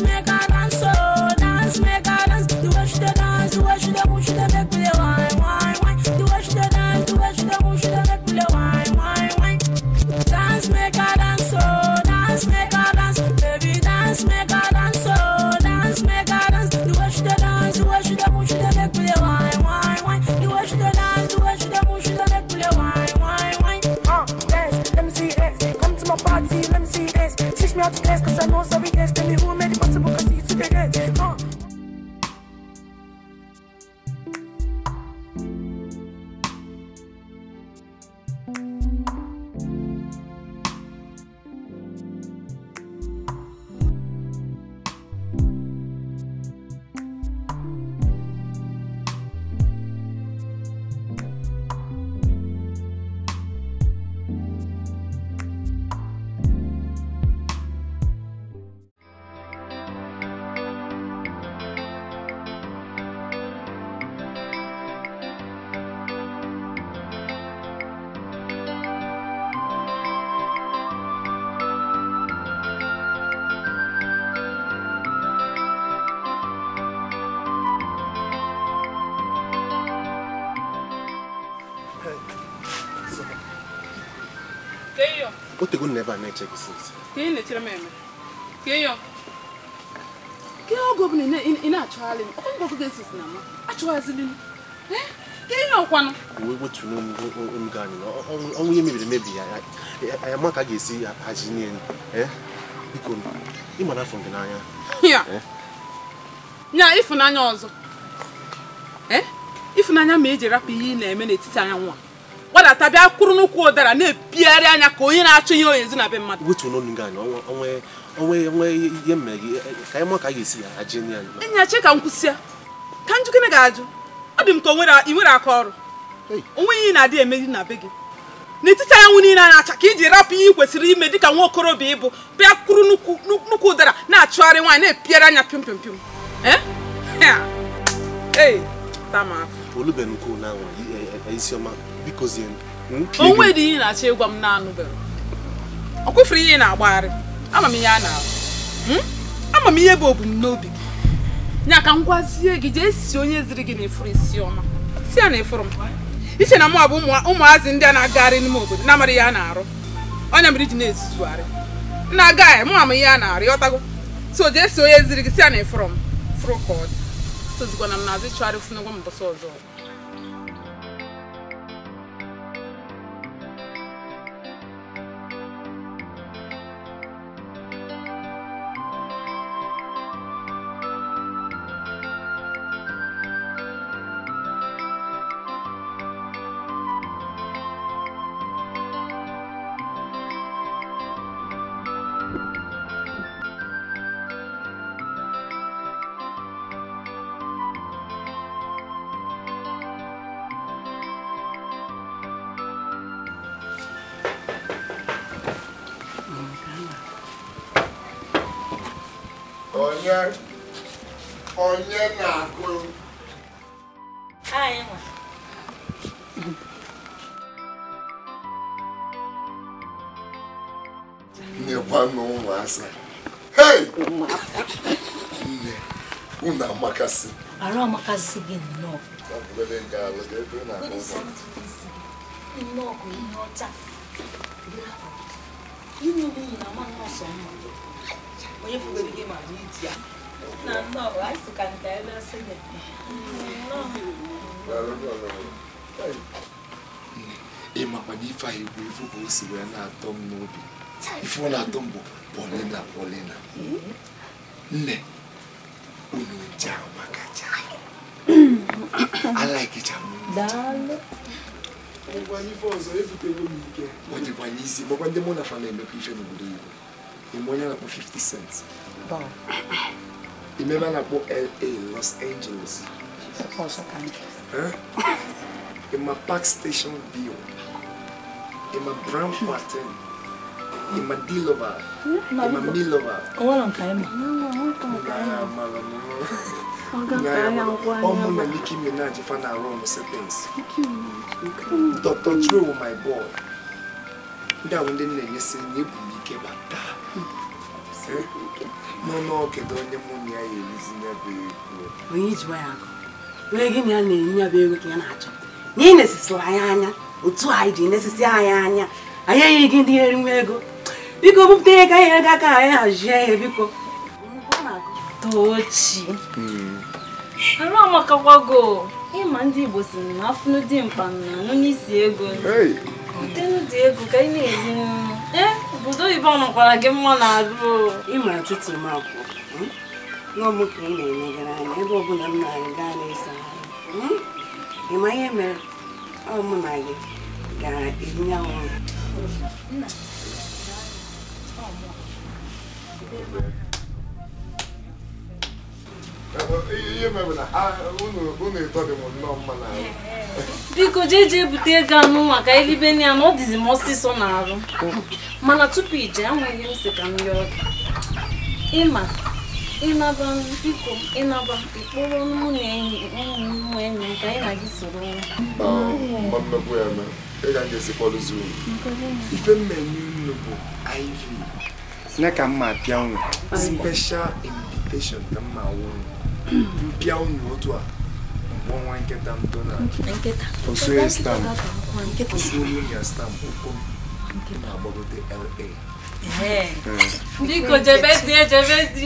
let oge ọbụla ị na-achọgharị ọkụ ga-esi na m achọghazili eh? ke ihe ọkwanụ wee gbotuo omume anyị na ọnwụ ihe mebiri emebi ya anyị ama ka a ga-esi haji n'elu eh? biko ị na afọ gị n'anya eh? ya ịfụnanya ọzọ ịfụnanya ma e ji rapụ ihe ị na-eme n'etiti anya nwa gbadata bịa kwụrụ n'ụkwụ ụdara na-ebigharị anya ka onye na-achọ ihe onye nzi na be mmadụ wetu gị onwe ihe ka a ya esi m ga-ajụ ọ dị m ka nwere aka ọrụ onwe ihe na-adị eme na be gị n'etiti anyanwụ niile na-acha ka iji rapụ ihe kwesịrị ime ka nwa okorobịa ịbụ bịa kwụrụ nnukwu ụdara na-achụgharị nwaanyị na anya eh? bikozie o dị ihe na-achọ ịgwa m nanụ anụbeghị ọ kwụfere ihe ị na-agbagharị ama m ihe a na arụ hmm? ama m ihe bụ obumnobi gị nya ka m gwazie gị jee si onye ziri gị na efuru isi ọma si ya na efuru m iche na mụ abụ ụmụazị ndị a na-agagharị n'ime obodo na-amara ihe a na-arụ ọnya mere iji na-ezuzugharị na-agaghị mụ ama ihe a na arụ ọtago so jee si onye ziri gị si ya na efuru m furu ka ọ dị sozikwana m na-azụ ịchọgharị funu gwa m mbọsị ọzọ onye onye na-akụ nyekwanụ ụmụasa hei nne unu amakasị arụ amakasị gị nnọọ nnọọ bụ ihe ọcha onye fugoro gị ma na iti ya na nnọọ anyị ka nta ebe asị gị ịmakwana ife ahụ egwu ifu ka o si na-atọ n'obi ife ọ na-atọ m bụ polina polina nne unu nje amakacha ọ dịkwa n'isi ndị na fa na ife n'obodo igbo mmonya na po 50 cents wow imeba na po la los angeles ima park station bio ima brown pattern ima dilova ima milova ọmụ na Nicki Minaj fa na-arụ ọnụ settings Dr. Dre wụ my boy ndị ahụ ndị nna-enyesi na ebu m ike bataa n'ọnụọkedo onye mụ na ya erizi ya bụ ego onye ijikwa ya akụ onye gị na ya na-enye ya bụ ego ka ya na-achọ na ị nesisịrị anyị anya otu anyị ji nesisi anyị anya anyị enyeghị gị ndị eri nwa ego biko bupụta ihe ka anyị ego aka anyị hazie ihe biko tochi hmm. arụ amakakwago ịma ndị Igbo si na afụnụ dị mkpa na anụ n'isi ego dị egwu ka ị na obodo eh, oyibo ọnọkwara gị mma na arụ ịma atụtụ m akwụ n'ọgbụ ka ị na-emegara anya ebe ọbụla m na-arị gaa n'ịsa hmm? ị ma ihe mere ọ mụ na gị gara ebunye anwụ ihe na nnọọ biko jee jee bute ego anụ maka eribe na ya na ọ dịzi m ọsịsọ mana tupu ije anweghị m si ka m rịọ gị ịma ịnaba biko ịnaba ịkpọrọ mụ na enyi ụmụ enyi ka na gị soro apịa special invitation ka mpịa unu otu a mgbe ọnwa nkịta m donald osue stamp na-agbagote la hmm. Biko jebe dị ejebe dị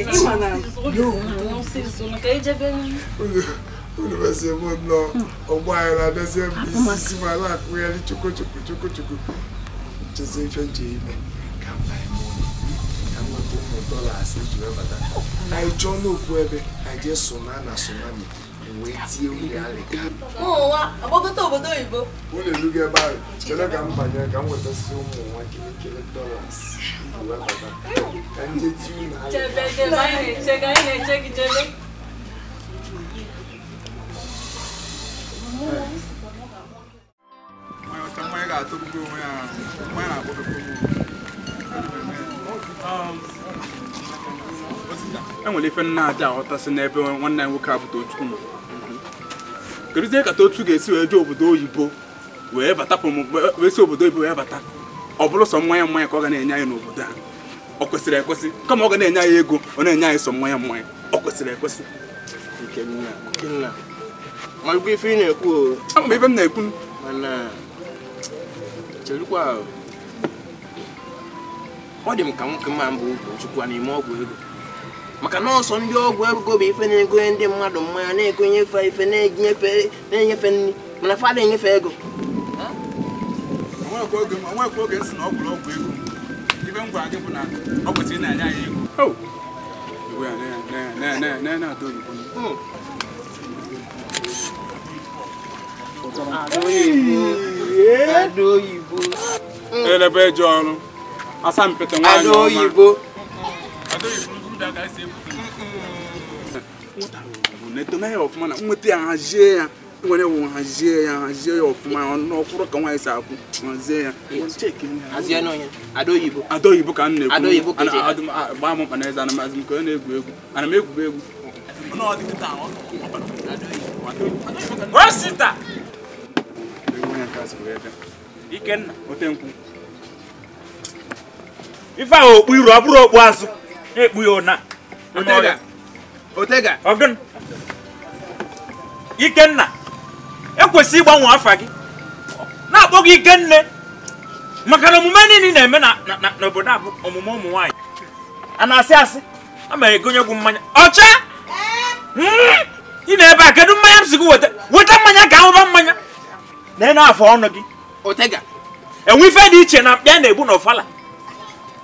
e unu besi hmm. ebe isi si mara akụgharị chukwu chukwu chukwu chukwu chezi ife nje ime ka mba ya bụ ụmụ dọla ji wee bata n'ofu ebe a jee sona na sonami wee tie uri alịka agbagote obodo oyibo unu ebe ahụ chere ka m banye ka m wetasị ụmụ nwa kirikiri dọlas bata ka ga-atụ onwe ya mmanya na enwere ife nna aja si n'ebe nwanne anyị nwoke abụta otu ụmụ kedụzie ka otu ga-esi wee jee obodo oyibo wee bata wee si obodo oyibo wee bata ọ bụrụ sọ mmanya mmanya ka ọ ga na-enye anyị n'obodo a ọ kwesịrị ekwesị kama ọ ga na-enye anyị ego ọ na-enye anyị sọ mmanya mmanya ọ kwesịrị ekwesị ife ị na-ekwu m na-ekwu ọ dị m ka nwoke mma mbụ ụkọchukwu na ọgwụ ego maka na ọsọ ndị ọgwụ ego bụ ife na-egonye ndị mmadụ mmanya na-egonye ife ife na-enyefe nri mana fada enyefe ego onwekwa ọgwụ ego ego oh! oyibo. Hmm. Hmm. Elebe ji ọrụ. asampete nwaanyị ọma. Ala oyibo. na-etona ya ọfụma na nweta ya hazie ya nwere wụ hazie ya hazie ya ọfụma n'ọkwụrụ ka nwaanyị si akwụ hazie ya adaoyibo ka m na-ekwu gbaa m mkpa na eze anamazị m ka ọ na-egwu egwu ana m egwube egwu Ikenna. Ote nkwụ. ife ahụ okpu iru ọ bụrụ okpu azụ na-ekpu ya ụna ọgụn ikenna ekwesị ịgbanwe afa gị na-akpọ gị ikenna maka na omume niile na-eme n'obodo a bụ omume ụmụ nwanyị a na-asị asị a ma egonye gwu mmanya ọcha hmm! ị na-ebe a kedu mmanya m si gị weta weta mmanya ka ahụba mmanya na-ene afọ ọnụ gị enwe ife dị iche na mkpịa na-egbu n'ọfala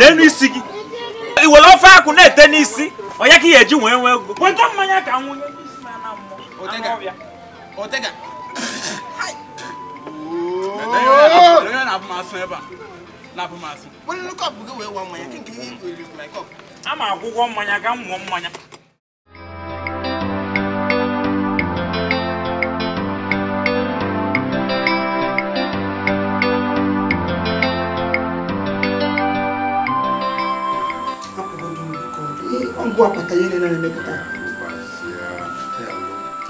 n'elu isi gị i ofe akwụ na-ete n'isi onye ka ị ga-eji wee nwee ego weta mmanya ka nwụnye ama agwụgwọ mmanya ka mmụọ mmanya ugwu akpata ihe na emepụta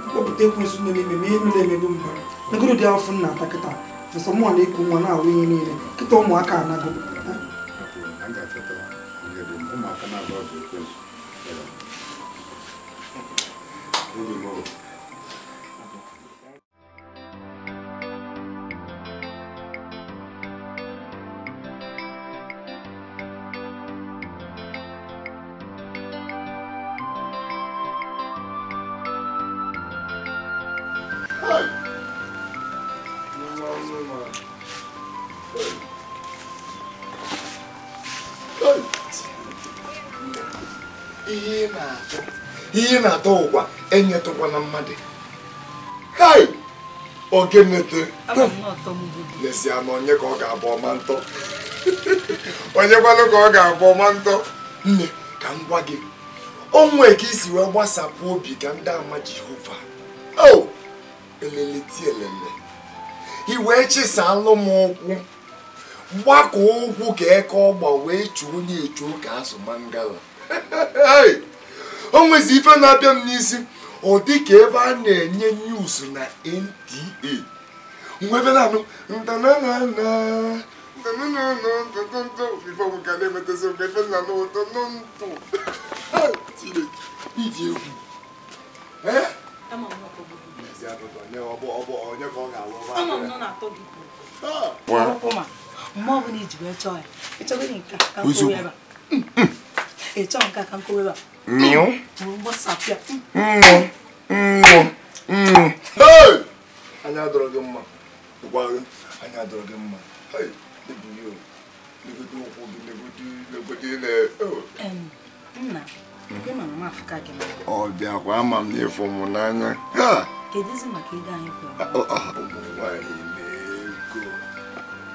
kpọpụta ekwensu na-ememe ma ihe nụ na-emebe mba nagoro dị afọ nna ata kịta nsọ mụnwa na iku nwa na-awụ ihe niile kịta ụmụaka anago Thank you. na-atọ ụkwa enyetụkwa na mmadụ hai ogenete lesia na onye ka ọ ga-abụ ọma ntọ onye onyekwalụ ka ọ ga-abụ ọma ntọ nne ka m gwa gị onwe ka isi wee gbasapụ obi ka ndị ama jehova o eleleti elele i wee chịsalụ m ụkwụ gbakọ ụkwụ ka eke ọgba wee chuo onye echuo ka azụ mangala o nwezi ife na-abịa m n'isi ọ dịka ebe a na-enye news na NTA mgbe ebe na-anụ ntananana ịchọghị nke a ka m kụrụ ebe a mịụ mmụ mmụ mmụ anya adọrọ gị mma gwa gị anya adọrọ gị mma legodo ụkwụ gị legodo legodo oh. nna ọ bịakwa ama m n'ịfụ m n'anya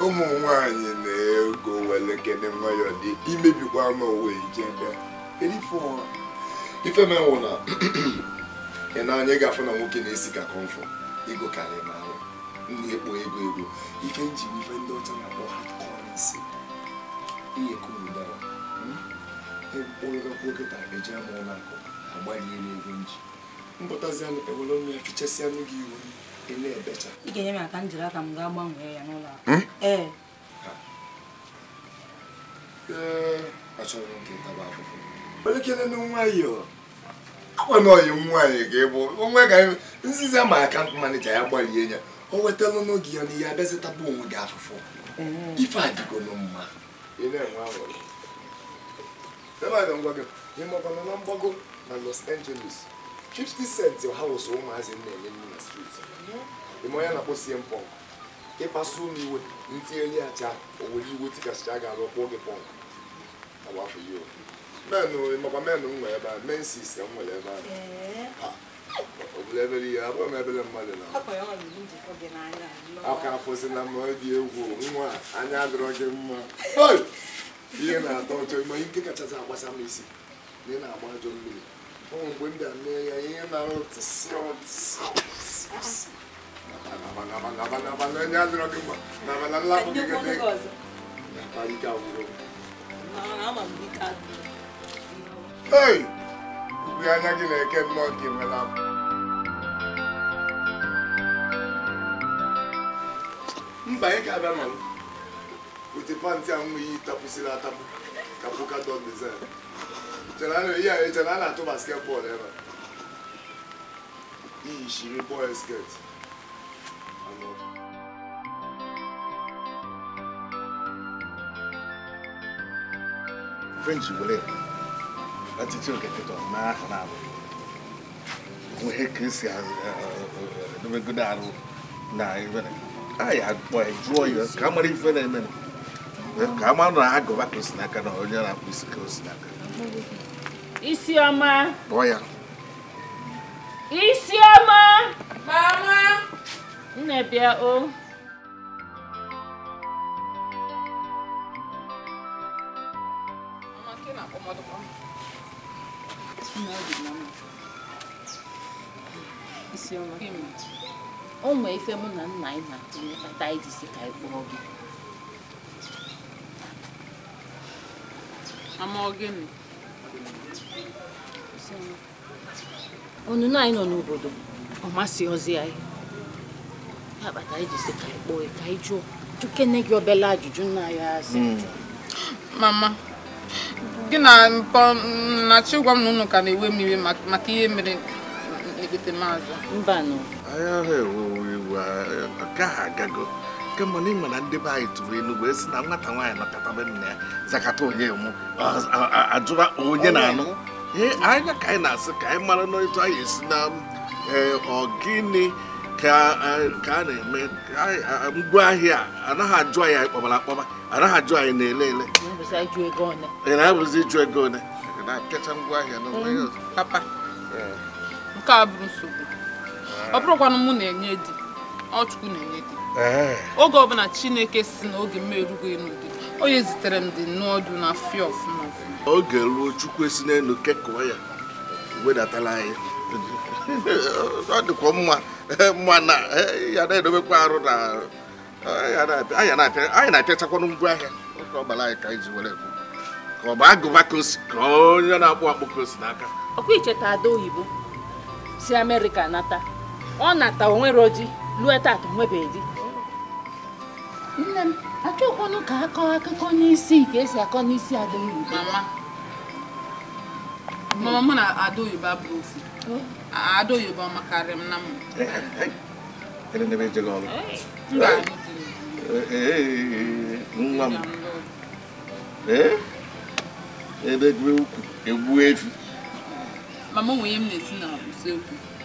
ụmụ nwanyị na-ego were kene nwayọ dị imebikwa n'ụwa ijebe ife menwụ na ị na-anya gafụ na nwoke na-esi ka kọmfọ ego karịa ma ahụ na-ekpo ego ego ife nji ife ndị ọcha na-akpọ hard currency ihe kumudara mkpụrụgakwokịta hmm? eji ama ụlọakụ agbalị elu ego nji mpụtazi ewere ya gị iwu ị na-ebecha ga-enye m aka m jiri aka m gaa gbanwee ya n'ụlọ akụ hmm? e. ee achọrọ m elekere nwaanyị akwana oyi nwaanyị ga-ebu onwe ga nziza ma akant manija ya gbalie ya o wetala n'oge ya na ihe abịazitaba onwe gị afụfụ mm-hmm. ife adịgo mma ịmakwana na mgbago na Los Angeles 50 cents ha wụsọ ụmụazị na-enye nne na street ime mm-hmm. onye na-akpọsie mpọnk ịkpasu m iwe ntinyeli acha owere iwe tikasịcha ga-arụ kwụọ gị pọnk agbafe ya makwa menụ m nwere ebe a mensis ka m nwere ebe a obodo ihe abụghị m ebere na aka afọsi na mma dị egwu nwa anya adịrọ gị mma ihe na-atọ ụtọ ime ike kachasị agbasa m isi na ị na-agba ajọ mmiri ụmụ mgbe m bịa mee ya ihe na-arụ onye mma ei ubi anya gị na-eke nnọọ gị enwela mba anyị ga-abịa nọrọ wete pantị a nweghị tapụsịrị atapu ka pụka dọg dizain ihe a echere a na-atụ basket bọọlụ ebe iyi shiri bọọl sket French wele ọtụtụ oketeke ọma na-abụ ihe ka esi edobegodo arụ na ibere anyị akpọ jụọ ka a mara ife na-eme ka a mara na agụba ka osi n'aka na onye isi ka osi n'aka isi ọma ya isi ọma mama o oh. onwe ife mụ na nna anyị na-atụnye kpata ka gị anyị nọ n'obodo ọ masị ozi ya kpata anyị ka anyị kpọọ ka ị jụọ gị obele ajụjụ nna ya asị hmm. mama gị na nnachi gwa m na ka na-ewe mmiri maka ihe mere ekpete maazị anyị ahụ enugwu uh, uh, nke ahụ agago kemgbe n'ime na ndị be anyị tụrụ enugwu esi na nwata nwaanyị lọkọtaba nna ya zakata onye mụ ajụba onye na-anụ ee anya ka anyị na-asị ka anyị mara n'otu anyị esi na eh, ọgịnị eh, ka a na-eme ngwa ahịa anaghị ajụ anyị anyị kpọbara akpọba anaghị ajụ anyị na-ele ele ị na-abụzi ịjụ ego one na-apịacha ngwa ahịa n'ụlọ papa eh. nke a bụrụ nsogbu ọ bụrụkwanụ mụ na-enye di Ọ chukwu na-enye gị oge ọbụla chineke si na oge m erugo n'udu onye zitere m dị nnọọ ọdụ na fia ọfụma ọfụma oge ruo chukwu esi n'elu kekụọ ya wedatala anyị ọ dịkwa mma mma na eh, ya na-edobekwa arụ na eh, anyị na-apịachakwanụ ngwa ahịa oge ọ gbara anyị ka anyị ji were ka ọ bụ agụba kosi ka onye na-akpụ akpụ kosi n'aka ọkwa icheta ada oyibo si amerịka nata ọ na onwero di lue tata onwebeghị di nne m ka akọọ akụkọ n'isi ka esi akọ n'isi adaugo na ada bụ ofu ada oyibo makarị m na m nwa m ebe gwe ukwu egbu mama nwunye m na-esi na usekwu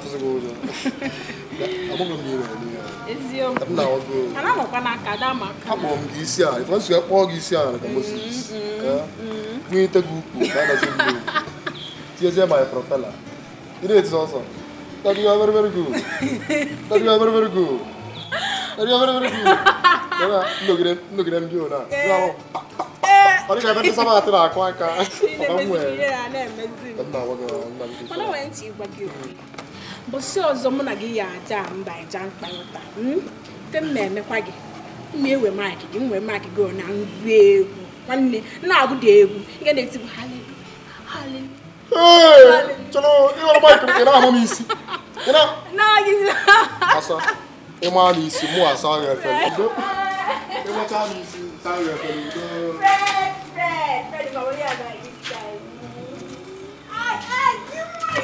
atụsịghị ụjọ amụghị m ire n'ihe akpọrọ m gị isi ala ife nsogbu akpọọ gị isi ala ka moses kwunyete gị ukwu ka adazi mmiri tinyezie my propela ịna eti ọsọ That you are very very good. That you are very very good. That you are very very good. Nnogide nnogide ndị ona. Ọ dịka ebe ndị sama atụ na-akụ aka. Ọ na-emezi ihe na-emezi. Ọ na-agwa gị nna gị. Ọ na-enwe ntị ịgwa gị okwu mbọsị ọzọ mụ na gị ya aja mba ịja mkpa ụta hmm? fe m na-emekwa gị m na-ewe maịkị gị m wee maịkị gị na ngwa egwu nwanne na-agụ dị egwu nke na-etigbu haleluya haleluya chọrọ ịghọrọ maịkị m ị na-ama m isi asa ịma m isi mụ asa ahụ efere udo ịmacha m isi asa ahụ efere udo Fred Fred Fred ma onye a na-aga isi anyị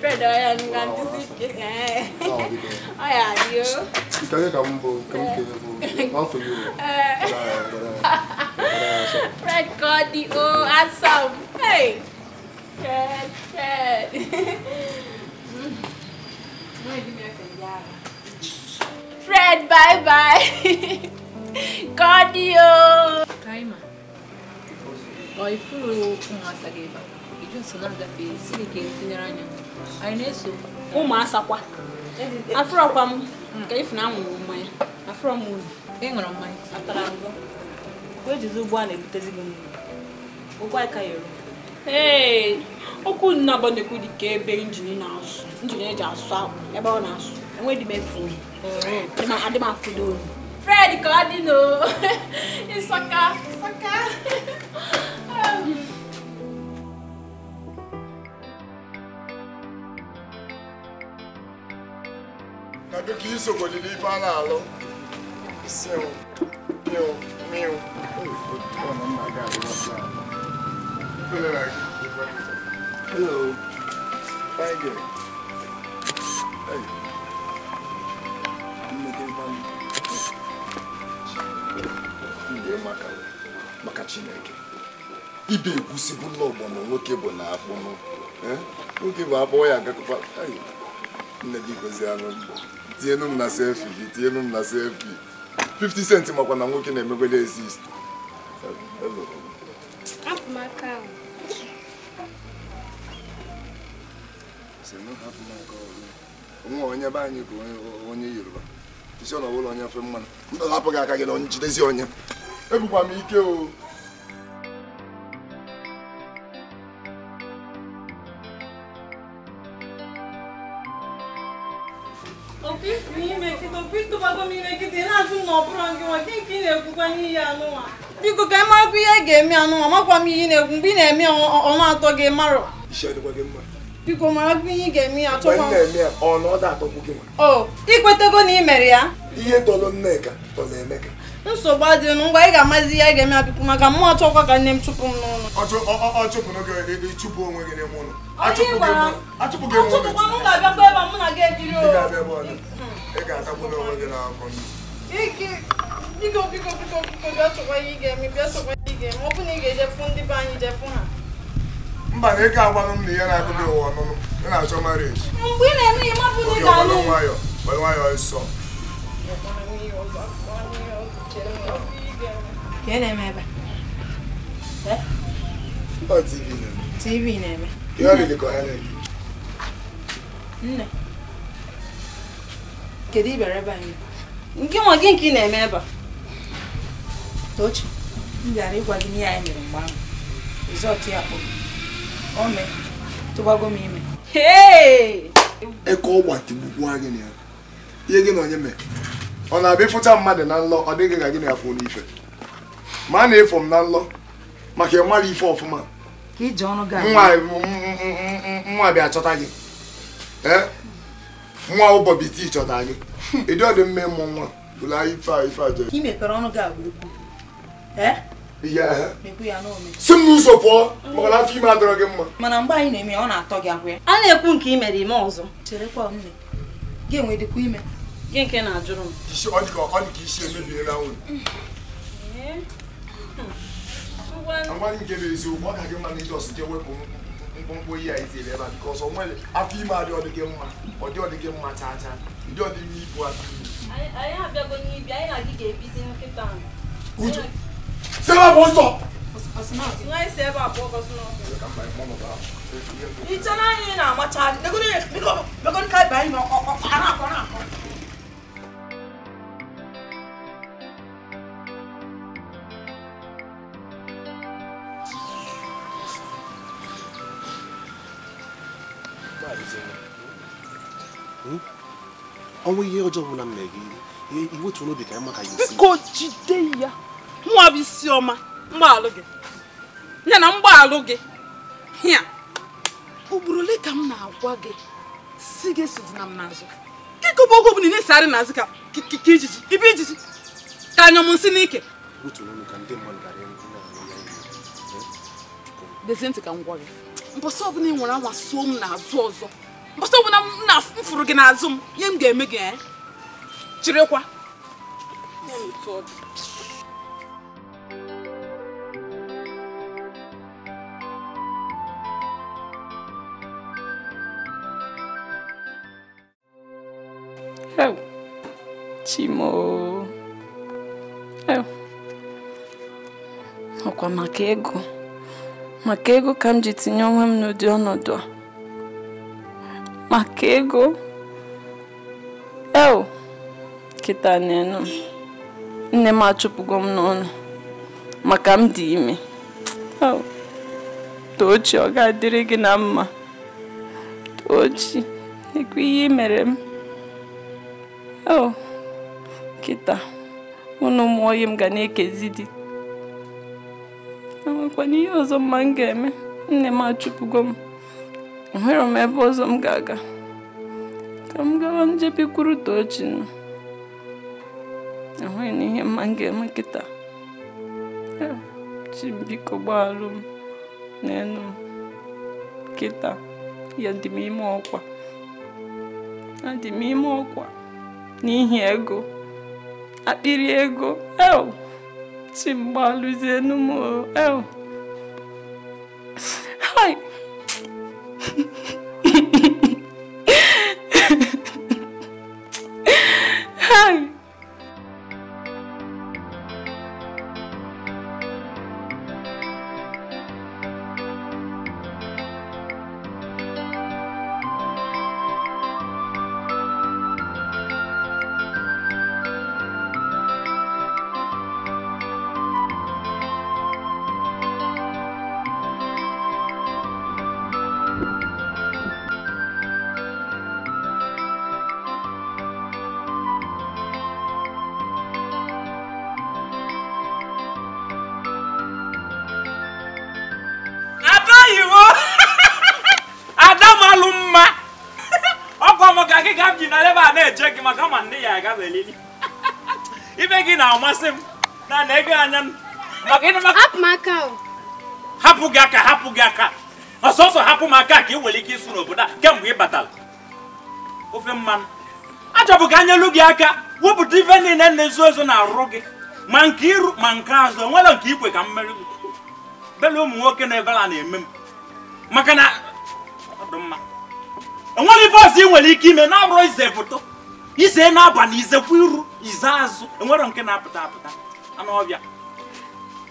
Brother, anh ganti sikit na eh. Oh, dito. Ayan, you. Ikaw yung kamu po, kamu kayo po. All for you. Red Cody, oh, awesome. Hey! Red, red. Fred, bye-bye. Cardio! Kaima. Boy, furu kung nga sa gibang. ụmụ asakwa afọrọkwa m hmm. ka ifuna anwụrụ mmanya okwu nnaba na-ekwu dị ka ebe injin na-asụ injin eji asụ akpụ ebe ọ na-asụ enweghị m efu fred ka ọ dị n'o ịsaka ịsaka um, ka isogodi n'ife a na-alụ Meu. Meu. Hello. Fine girl. Hey. I'm making money. Ndị maka maka Chineke. Ibe egwusi bụ ụlọ ọgbọ na nwoke eh? bụ na akpụnụ. Nwoke bụ akpọ ya agakọkwa. Nne gị gozi anụ mgbọ. tienu m na selfi 50 cent makwa na nwoke na-emegwele exist nwa onye be anyị bụ onye yoruba isi ọ na ọbụla onye fe mmanụ ndụ hapụ gị aka gị na onye onye ebukwa m ike o biko ka ị marakwa ihe ị ga-eme anụnwa makwa m ihe na egwu mgbe ị na-eme ọnụ atọ gị marọ biko marakwa ihe ị ga-eme ya ị ikwetego oh, na ị mere ya nsogbu adịghị ngwa ị ga-amazi ihe ị ga-eme ya maka mmụọ achọkwa ka nne m chụpụ m n'ụlọ biko biko biko biko bịa chọkwa ihe ị ga-eme bịa chọkwa ihe ị ga-eme ọ bụ na ị ga-ejefu ndị be anyị jefu ha mba na ego agbanụ m na ihe na-akụda ụwa ọnụnụ ị na-achọ marieji mgbe ị na-eme ihe mabụ na ị ga-alụ nwayọ gbara nwayọ ịsọ ka ị na-eme ebe tv na-eme nne kedu ibere ebe anyị nke nwa gị nke ị na-eme ebe a Tochi m bịara ịgwa gị ihe anyị mere mgbe ahụ rizọtụ ya kpọrọ o mee tụgbago m ime eke ọgba tigbukwu anyị ihe gị na onye mee ọ na-abịa ịfụcha mmadụ na nlọ ọ dịghị ka gị na ya fụ n'ife ma a na-efo m na nlọ maka ịmara ife ọfụma nwa bịa chọta gị nwa ụbọbiti chọta gị ịdị ọdị mme mmụ nwa bụla ife ife ajọ si m n'ụzọ pụọ afọ ime adọrọ gị mma mana mgbe anyị na-eme ọ na-atọ gị agwa ya a na-ekwu nke ime dị ime ọzọ cherekwa nne gị enwedịkwa ime gị nke na-ajụrụ m ọ dị ka isi dị gị nke bụ eziokwu ọ ka gị mma na ije mkpụmkpụ ihe a itiri ebe a nwere afọ ime gị mma ọ dị gị mma ndị Seba b'o sɔn. N ka Seba bɔ ka sunɔgɔ. Ni tiɲɛna ɲini na a ma ca ne ko ne ne ko ne ko ne ka ba in ma ɔ ɔ a n'a kɔnɔ a kɔnɔ. ọnwụ ihe ọjọọ bụla m mere gị iwe tụrụ obi ka mma ka ya esi ko jide ya bụ isi ọma mgbaalụ gị ya na mgbaalụ gị ya ugboro ole ka m na-agwa gị si gị na m n'azụ kịkọba oge bụ na-esegharị n'azụ ka ijiji ibe ijiji ka m nsị n'ike dezie ntị ka m gwa gị mbọsị ọbụla ị nwere anwa suo m n'azụ ọzọ mbọsị ọbụla m na-afụrụ gị n'azụ m ihe m ga-eme gị chịrịkwa ya na otu ọ ewu, ọkwa maka ego maka ego ka m ji tinye onwe m n'ụdị ọnọdụ a maka ego eo kịta n'enu nne m achụpụgo m n'ọnụ maka m dị ime tochi ọ ga-adịrị gị na mma tochi ekwe ihe mere m kịta ụnụ ụmụoyi m ga na-ekezi di enwekwana ihe ọzọ mma m ga-eme nne m achụpụgo m nwere m ebe ọzọ m ga-aga ka m gawa njebikwuru Tochi nọ enweghị na ihe mma m ga-eme kịta chi biko gbaalụ m n'elu m kịta ya dị m ime ọkwa adị m ime ọkwa n'ihi ego akpịrị ego el si mgba lụzie n'ụmụ ibe gị na-amasị m na na-ege anya m hapụ gị aka hapụ gị aka ọsọsọ hapụ m aka ka ị nwere ike ịsụ n'obodo a kemgbe ị batara ofe mmanụ achọbụ ka anyelu gị aka wepụta ife niile na-ezo ezo na-arụ gị ma nke iru ma nke azụ onwere nke ikwe ka mmeri bela ụmụ nwoke na ebela na-eme m maka na ọ dị enwere ife ọzọ ị nwere ike ime na-abụrụ ize foto ize na-aba na izekwa iru ize azụ enwero nke na-apụta apụta anụọbịa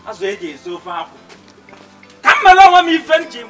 azụ eji esi ofe akwụ ka m mere m ife njem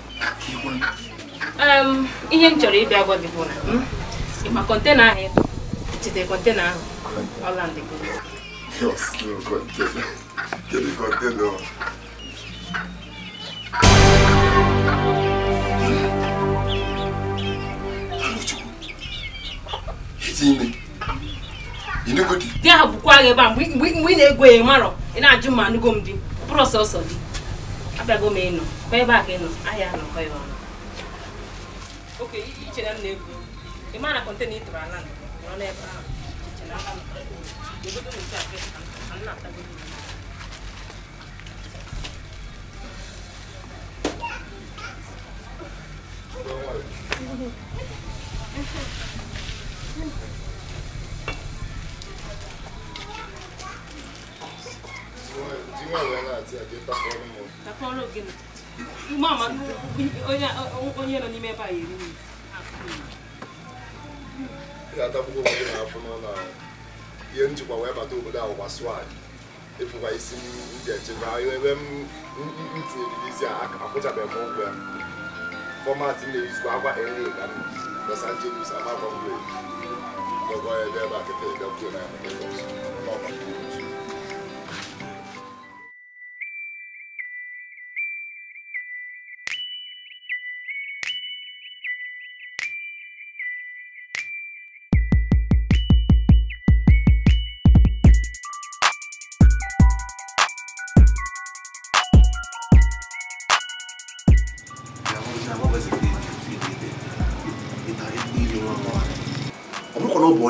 ihe m chọrọ ịbịa gwa gị bụ na hmm, ịma kọntena ahụ ịkpọ chete kọntena ahụ ọlandị di ahụ bụkwa gị ebe a mgbe ị na-egwu ya marọ ị na-ajụ ma anụgo m di bụrụ ọsọsọ di abịago m ịnọ kwa ebe a ka ịnọ ahịa nọkọ ya ọnụ oke i c h i r e m na-ebu ị ma na kọntena ịtụrụ ala nọ n'ebe ahụ Thank you. onye nọ n'ime ebe a eri nri ị ga-atakwuo obodo na-afụ n'ụlọ ahụ ihe njikwa wee bata obodo ahụ gbasụọ anyị ịfụkwa isi ndị echekwa ebe m tinyere isi a akwụchabeghị m ụgwọ ya fọmatị na-ezu agwa ere ka m Los Angeles amakwa mgbe ọgọ ebe ebe a kịta ebe kwuo na ya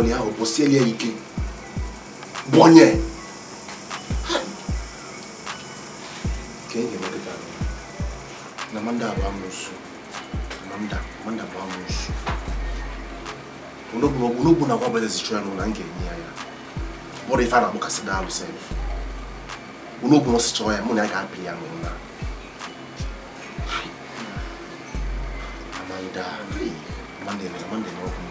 bɔnɛ o bɔ seli yɛ yi ke bɔnɛ kɛnkɛmɛ de b'a la na man da a b'a mun su man da man da a b'a mun su unobuwa unobuna kwamba lezi chwano nangenyaya bora ifana bukasidalo self unobuna sichoya muna yakaphiya ngona amanda amandene amandene okum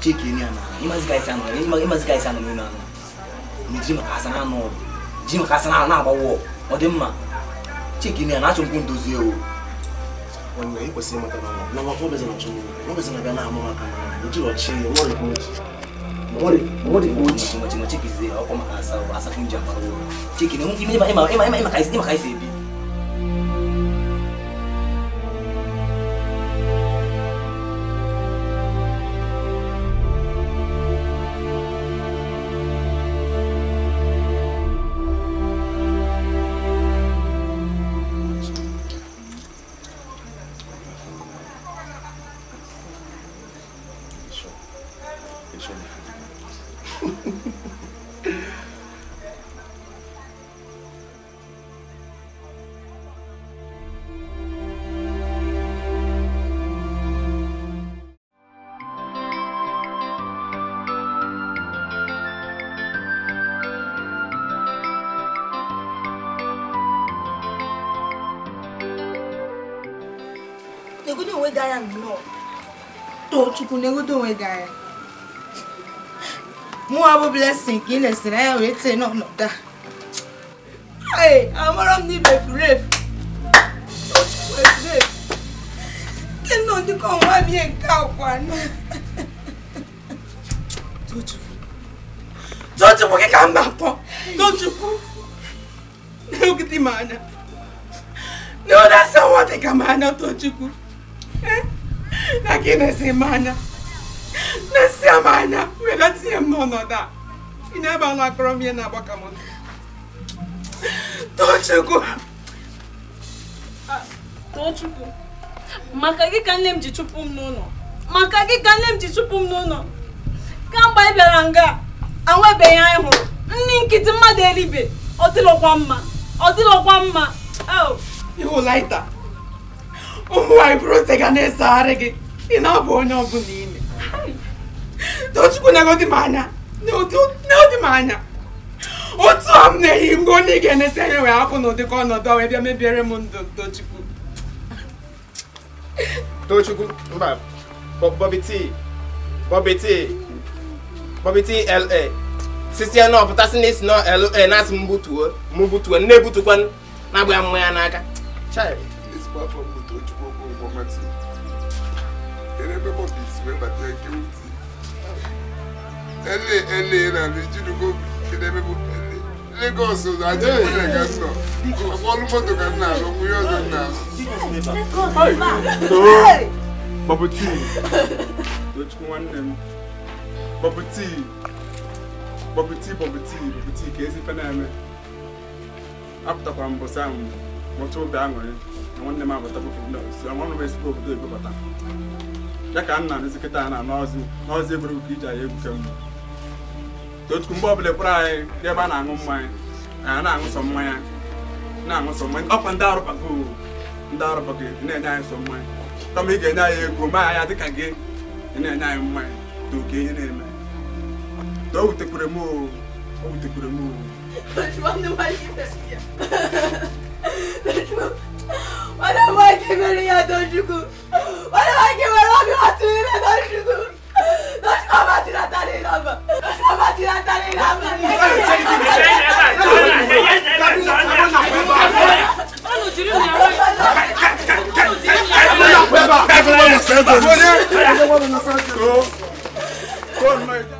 チキにやな今使いさんの今今使いさんのみんなのじまかさなのじまかさななばおおでんまチキにやなちょんくんとずよ wanne iko sema kama na ngombe zinachumia ngombe zinagana mama kana mji wa chini wale kuji wale wale kuji machimachiki zile au kama asa asa kunja maro chiki ni mungi mimi ima ima ima ima kaisi ima kaisi hivi Chukwu na-egodo onwe gị anya e. mụwa bụ blessing ka ị na-esere anya wee tee n'ọnọdụ a ee amara m n'ibe furef nke nọ ndị ka ọnwa bie nke akwa na Tochukwu gị ka mba pọ Tochukwu na-egide m anya na ọ na-asa nwa dị ka m anya Tochukwu na gị na-esi m anya na-esi m anya were m n'ọnọdụ a ị na-ebe anụ m ihe na-agbaka m Tochukwu Tochukwu maka gị ka nne m ji chụpụ m n'ụlọ maka gị kamgbe ị bịara nga anwebeghị anyị hụrụ nri nkịtị mmadụ eribe ọ dịlọkwa mma mma ịhụ oh. laita ụmụ nwaanyị bụrụ ose ga na-esegharị gị ị na-abụ onye ọbụla ime tochukwu na-egodi m anya n'odi m anya otu a m na-eyi mgbe onye ị ga-enesi anya wee hapụ n'ụdị ka ọnọdụ wee bịa mebiere m ndụ tochukwu tochukwu mba bọbi tii bọbi tii bọbi tii la sisi ya na ọpụtasị na isi na la na-asị m butuo m butuo nne na-agba ya mmanya n'aka child ebe mo bisi we ba te ke uti ele ele na le judu go ke de be mo ele Lagos o da je mo le ga so mo lu mo to ka na lo mu yo zo na Lagos bubble tea which one them bubble tea bubble tea bubble tea bubble tea ke esi fana me apụtakwa mbọ sam mọcha obi aṅụrị na nwanne m abata bụ na nwanne m esi obodo ebe bata ya ka nna n'isi kịta na n'ọzi eburu ka iji anyị egwu kemgbe otu mgbe ọbụla kpọrọ anyị ebe a na-aṅụ mmanya anyị na-aṅụ sọ mmanya na-aṅụ sọ mmanya ọkwa ndị arụbago ndị arụbago na-enye anyị sọ mmanya kama ị ga-enye anyị egwu ya dịka gị na-enye anyị mmanya na na-eme wutekwere m o wutekwere m Wala mahkemeli ya dönüşü. Wala mahkemeli abi hatırıyla dönüşü. Dönüşme batına tane inanma. Dönüşme batına tane inanma. Kọ́ọ̀nù ẹ̀jẹ̀.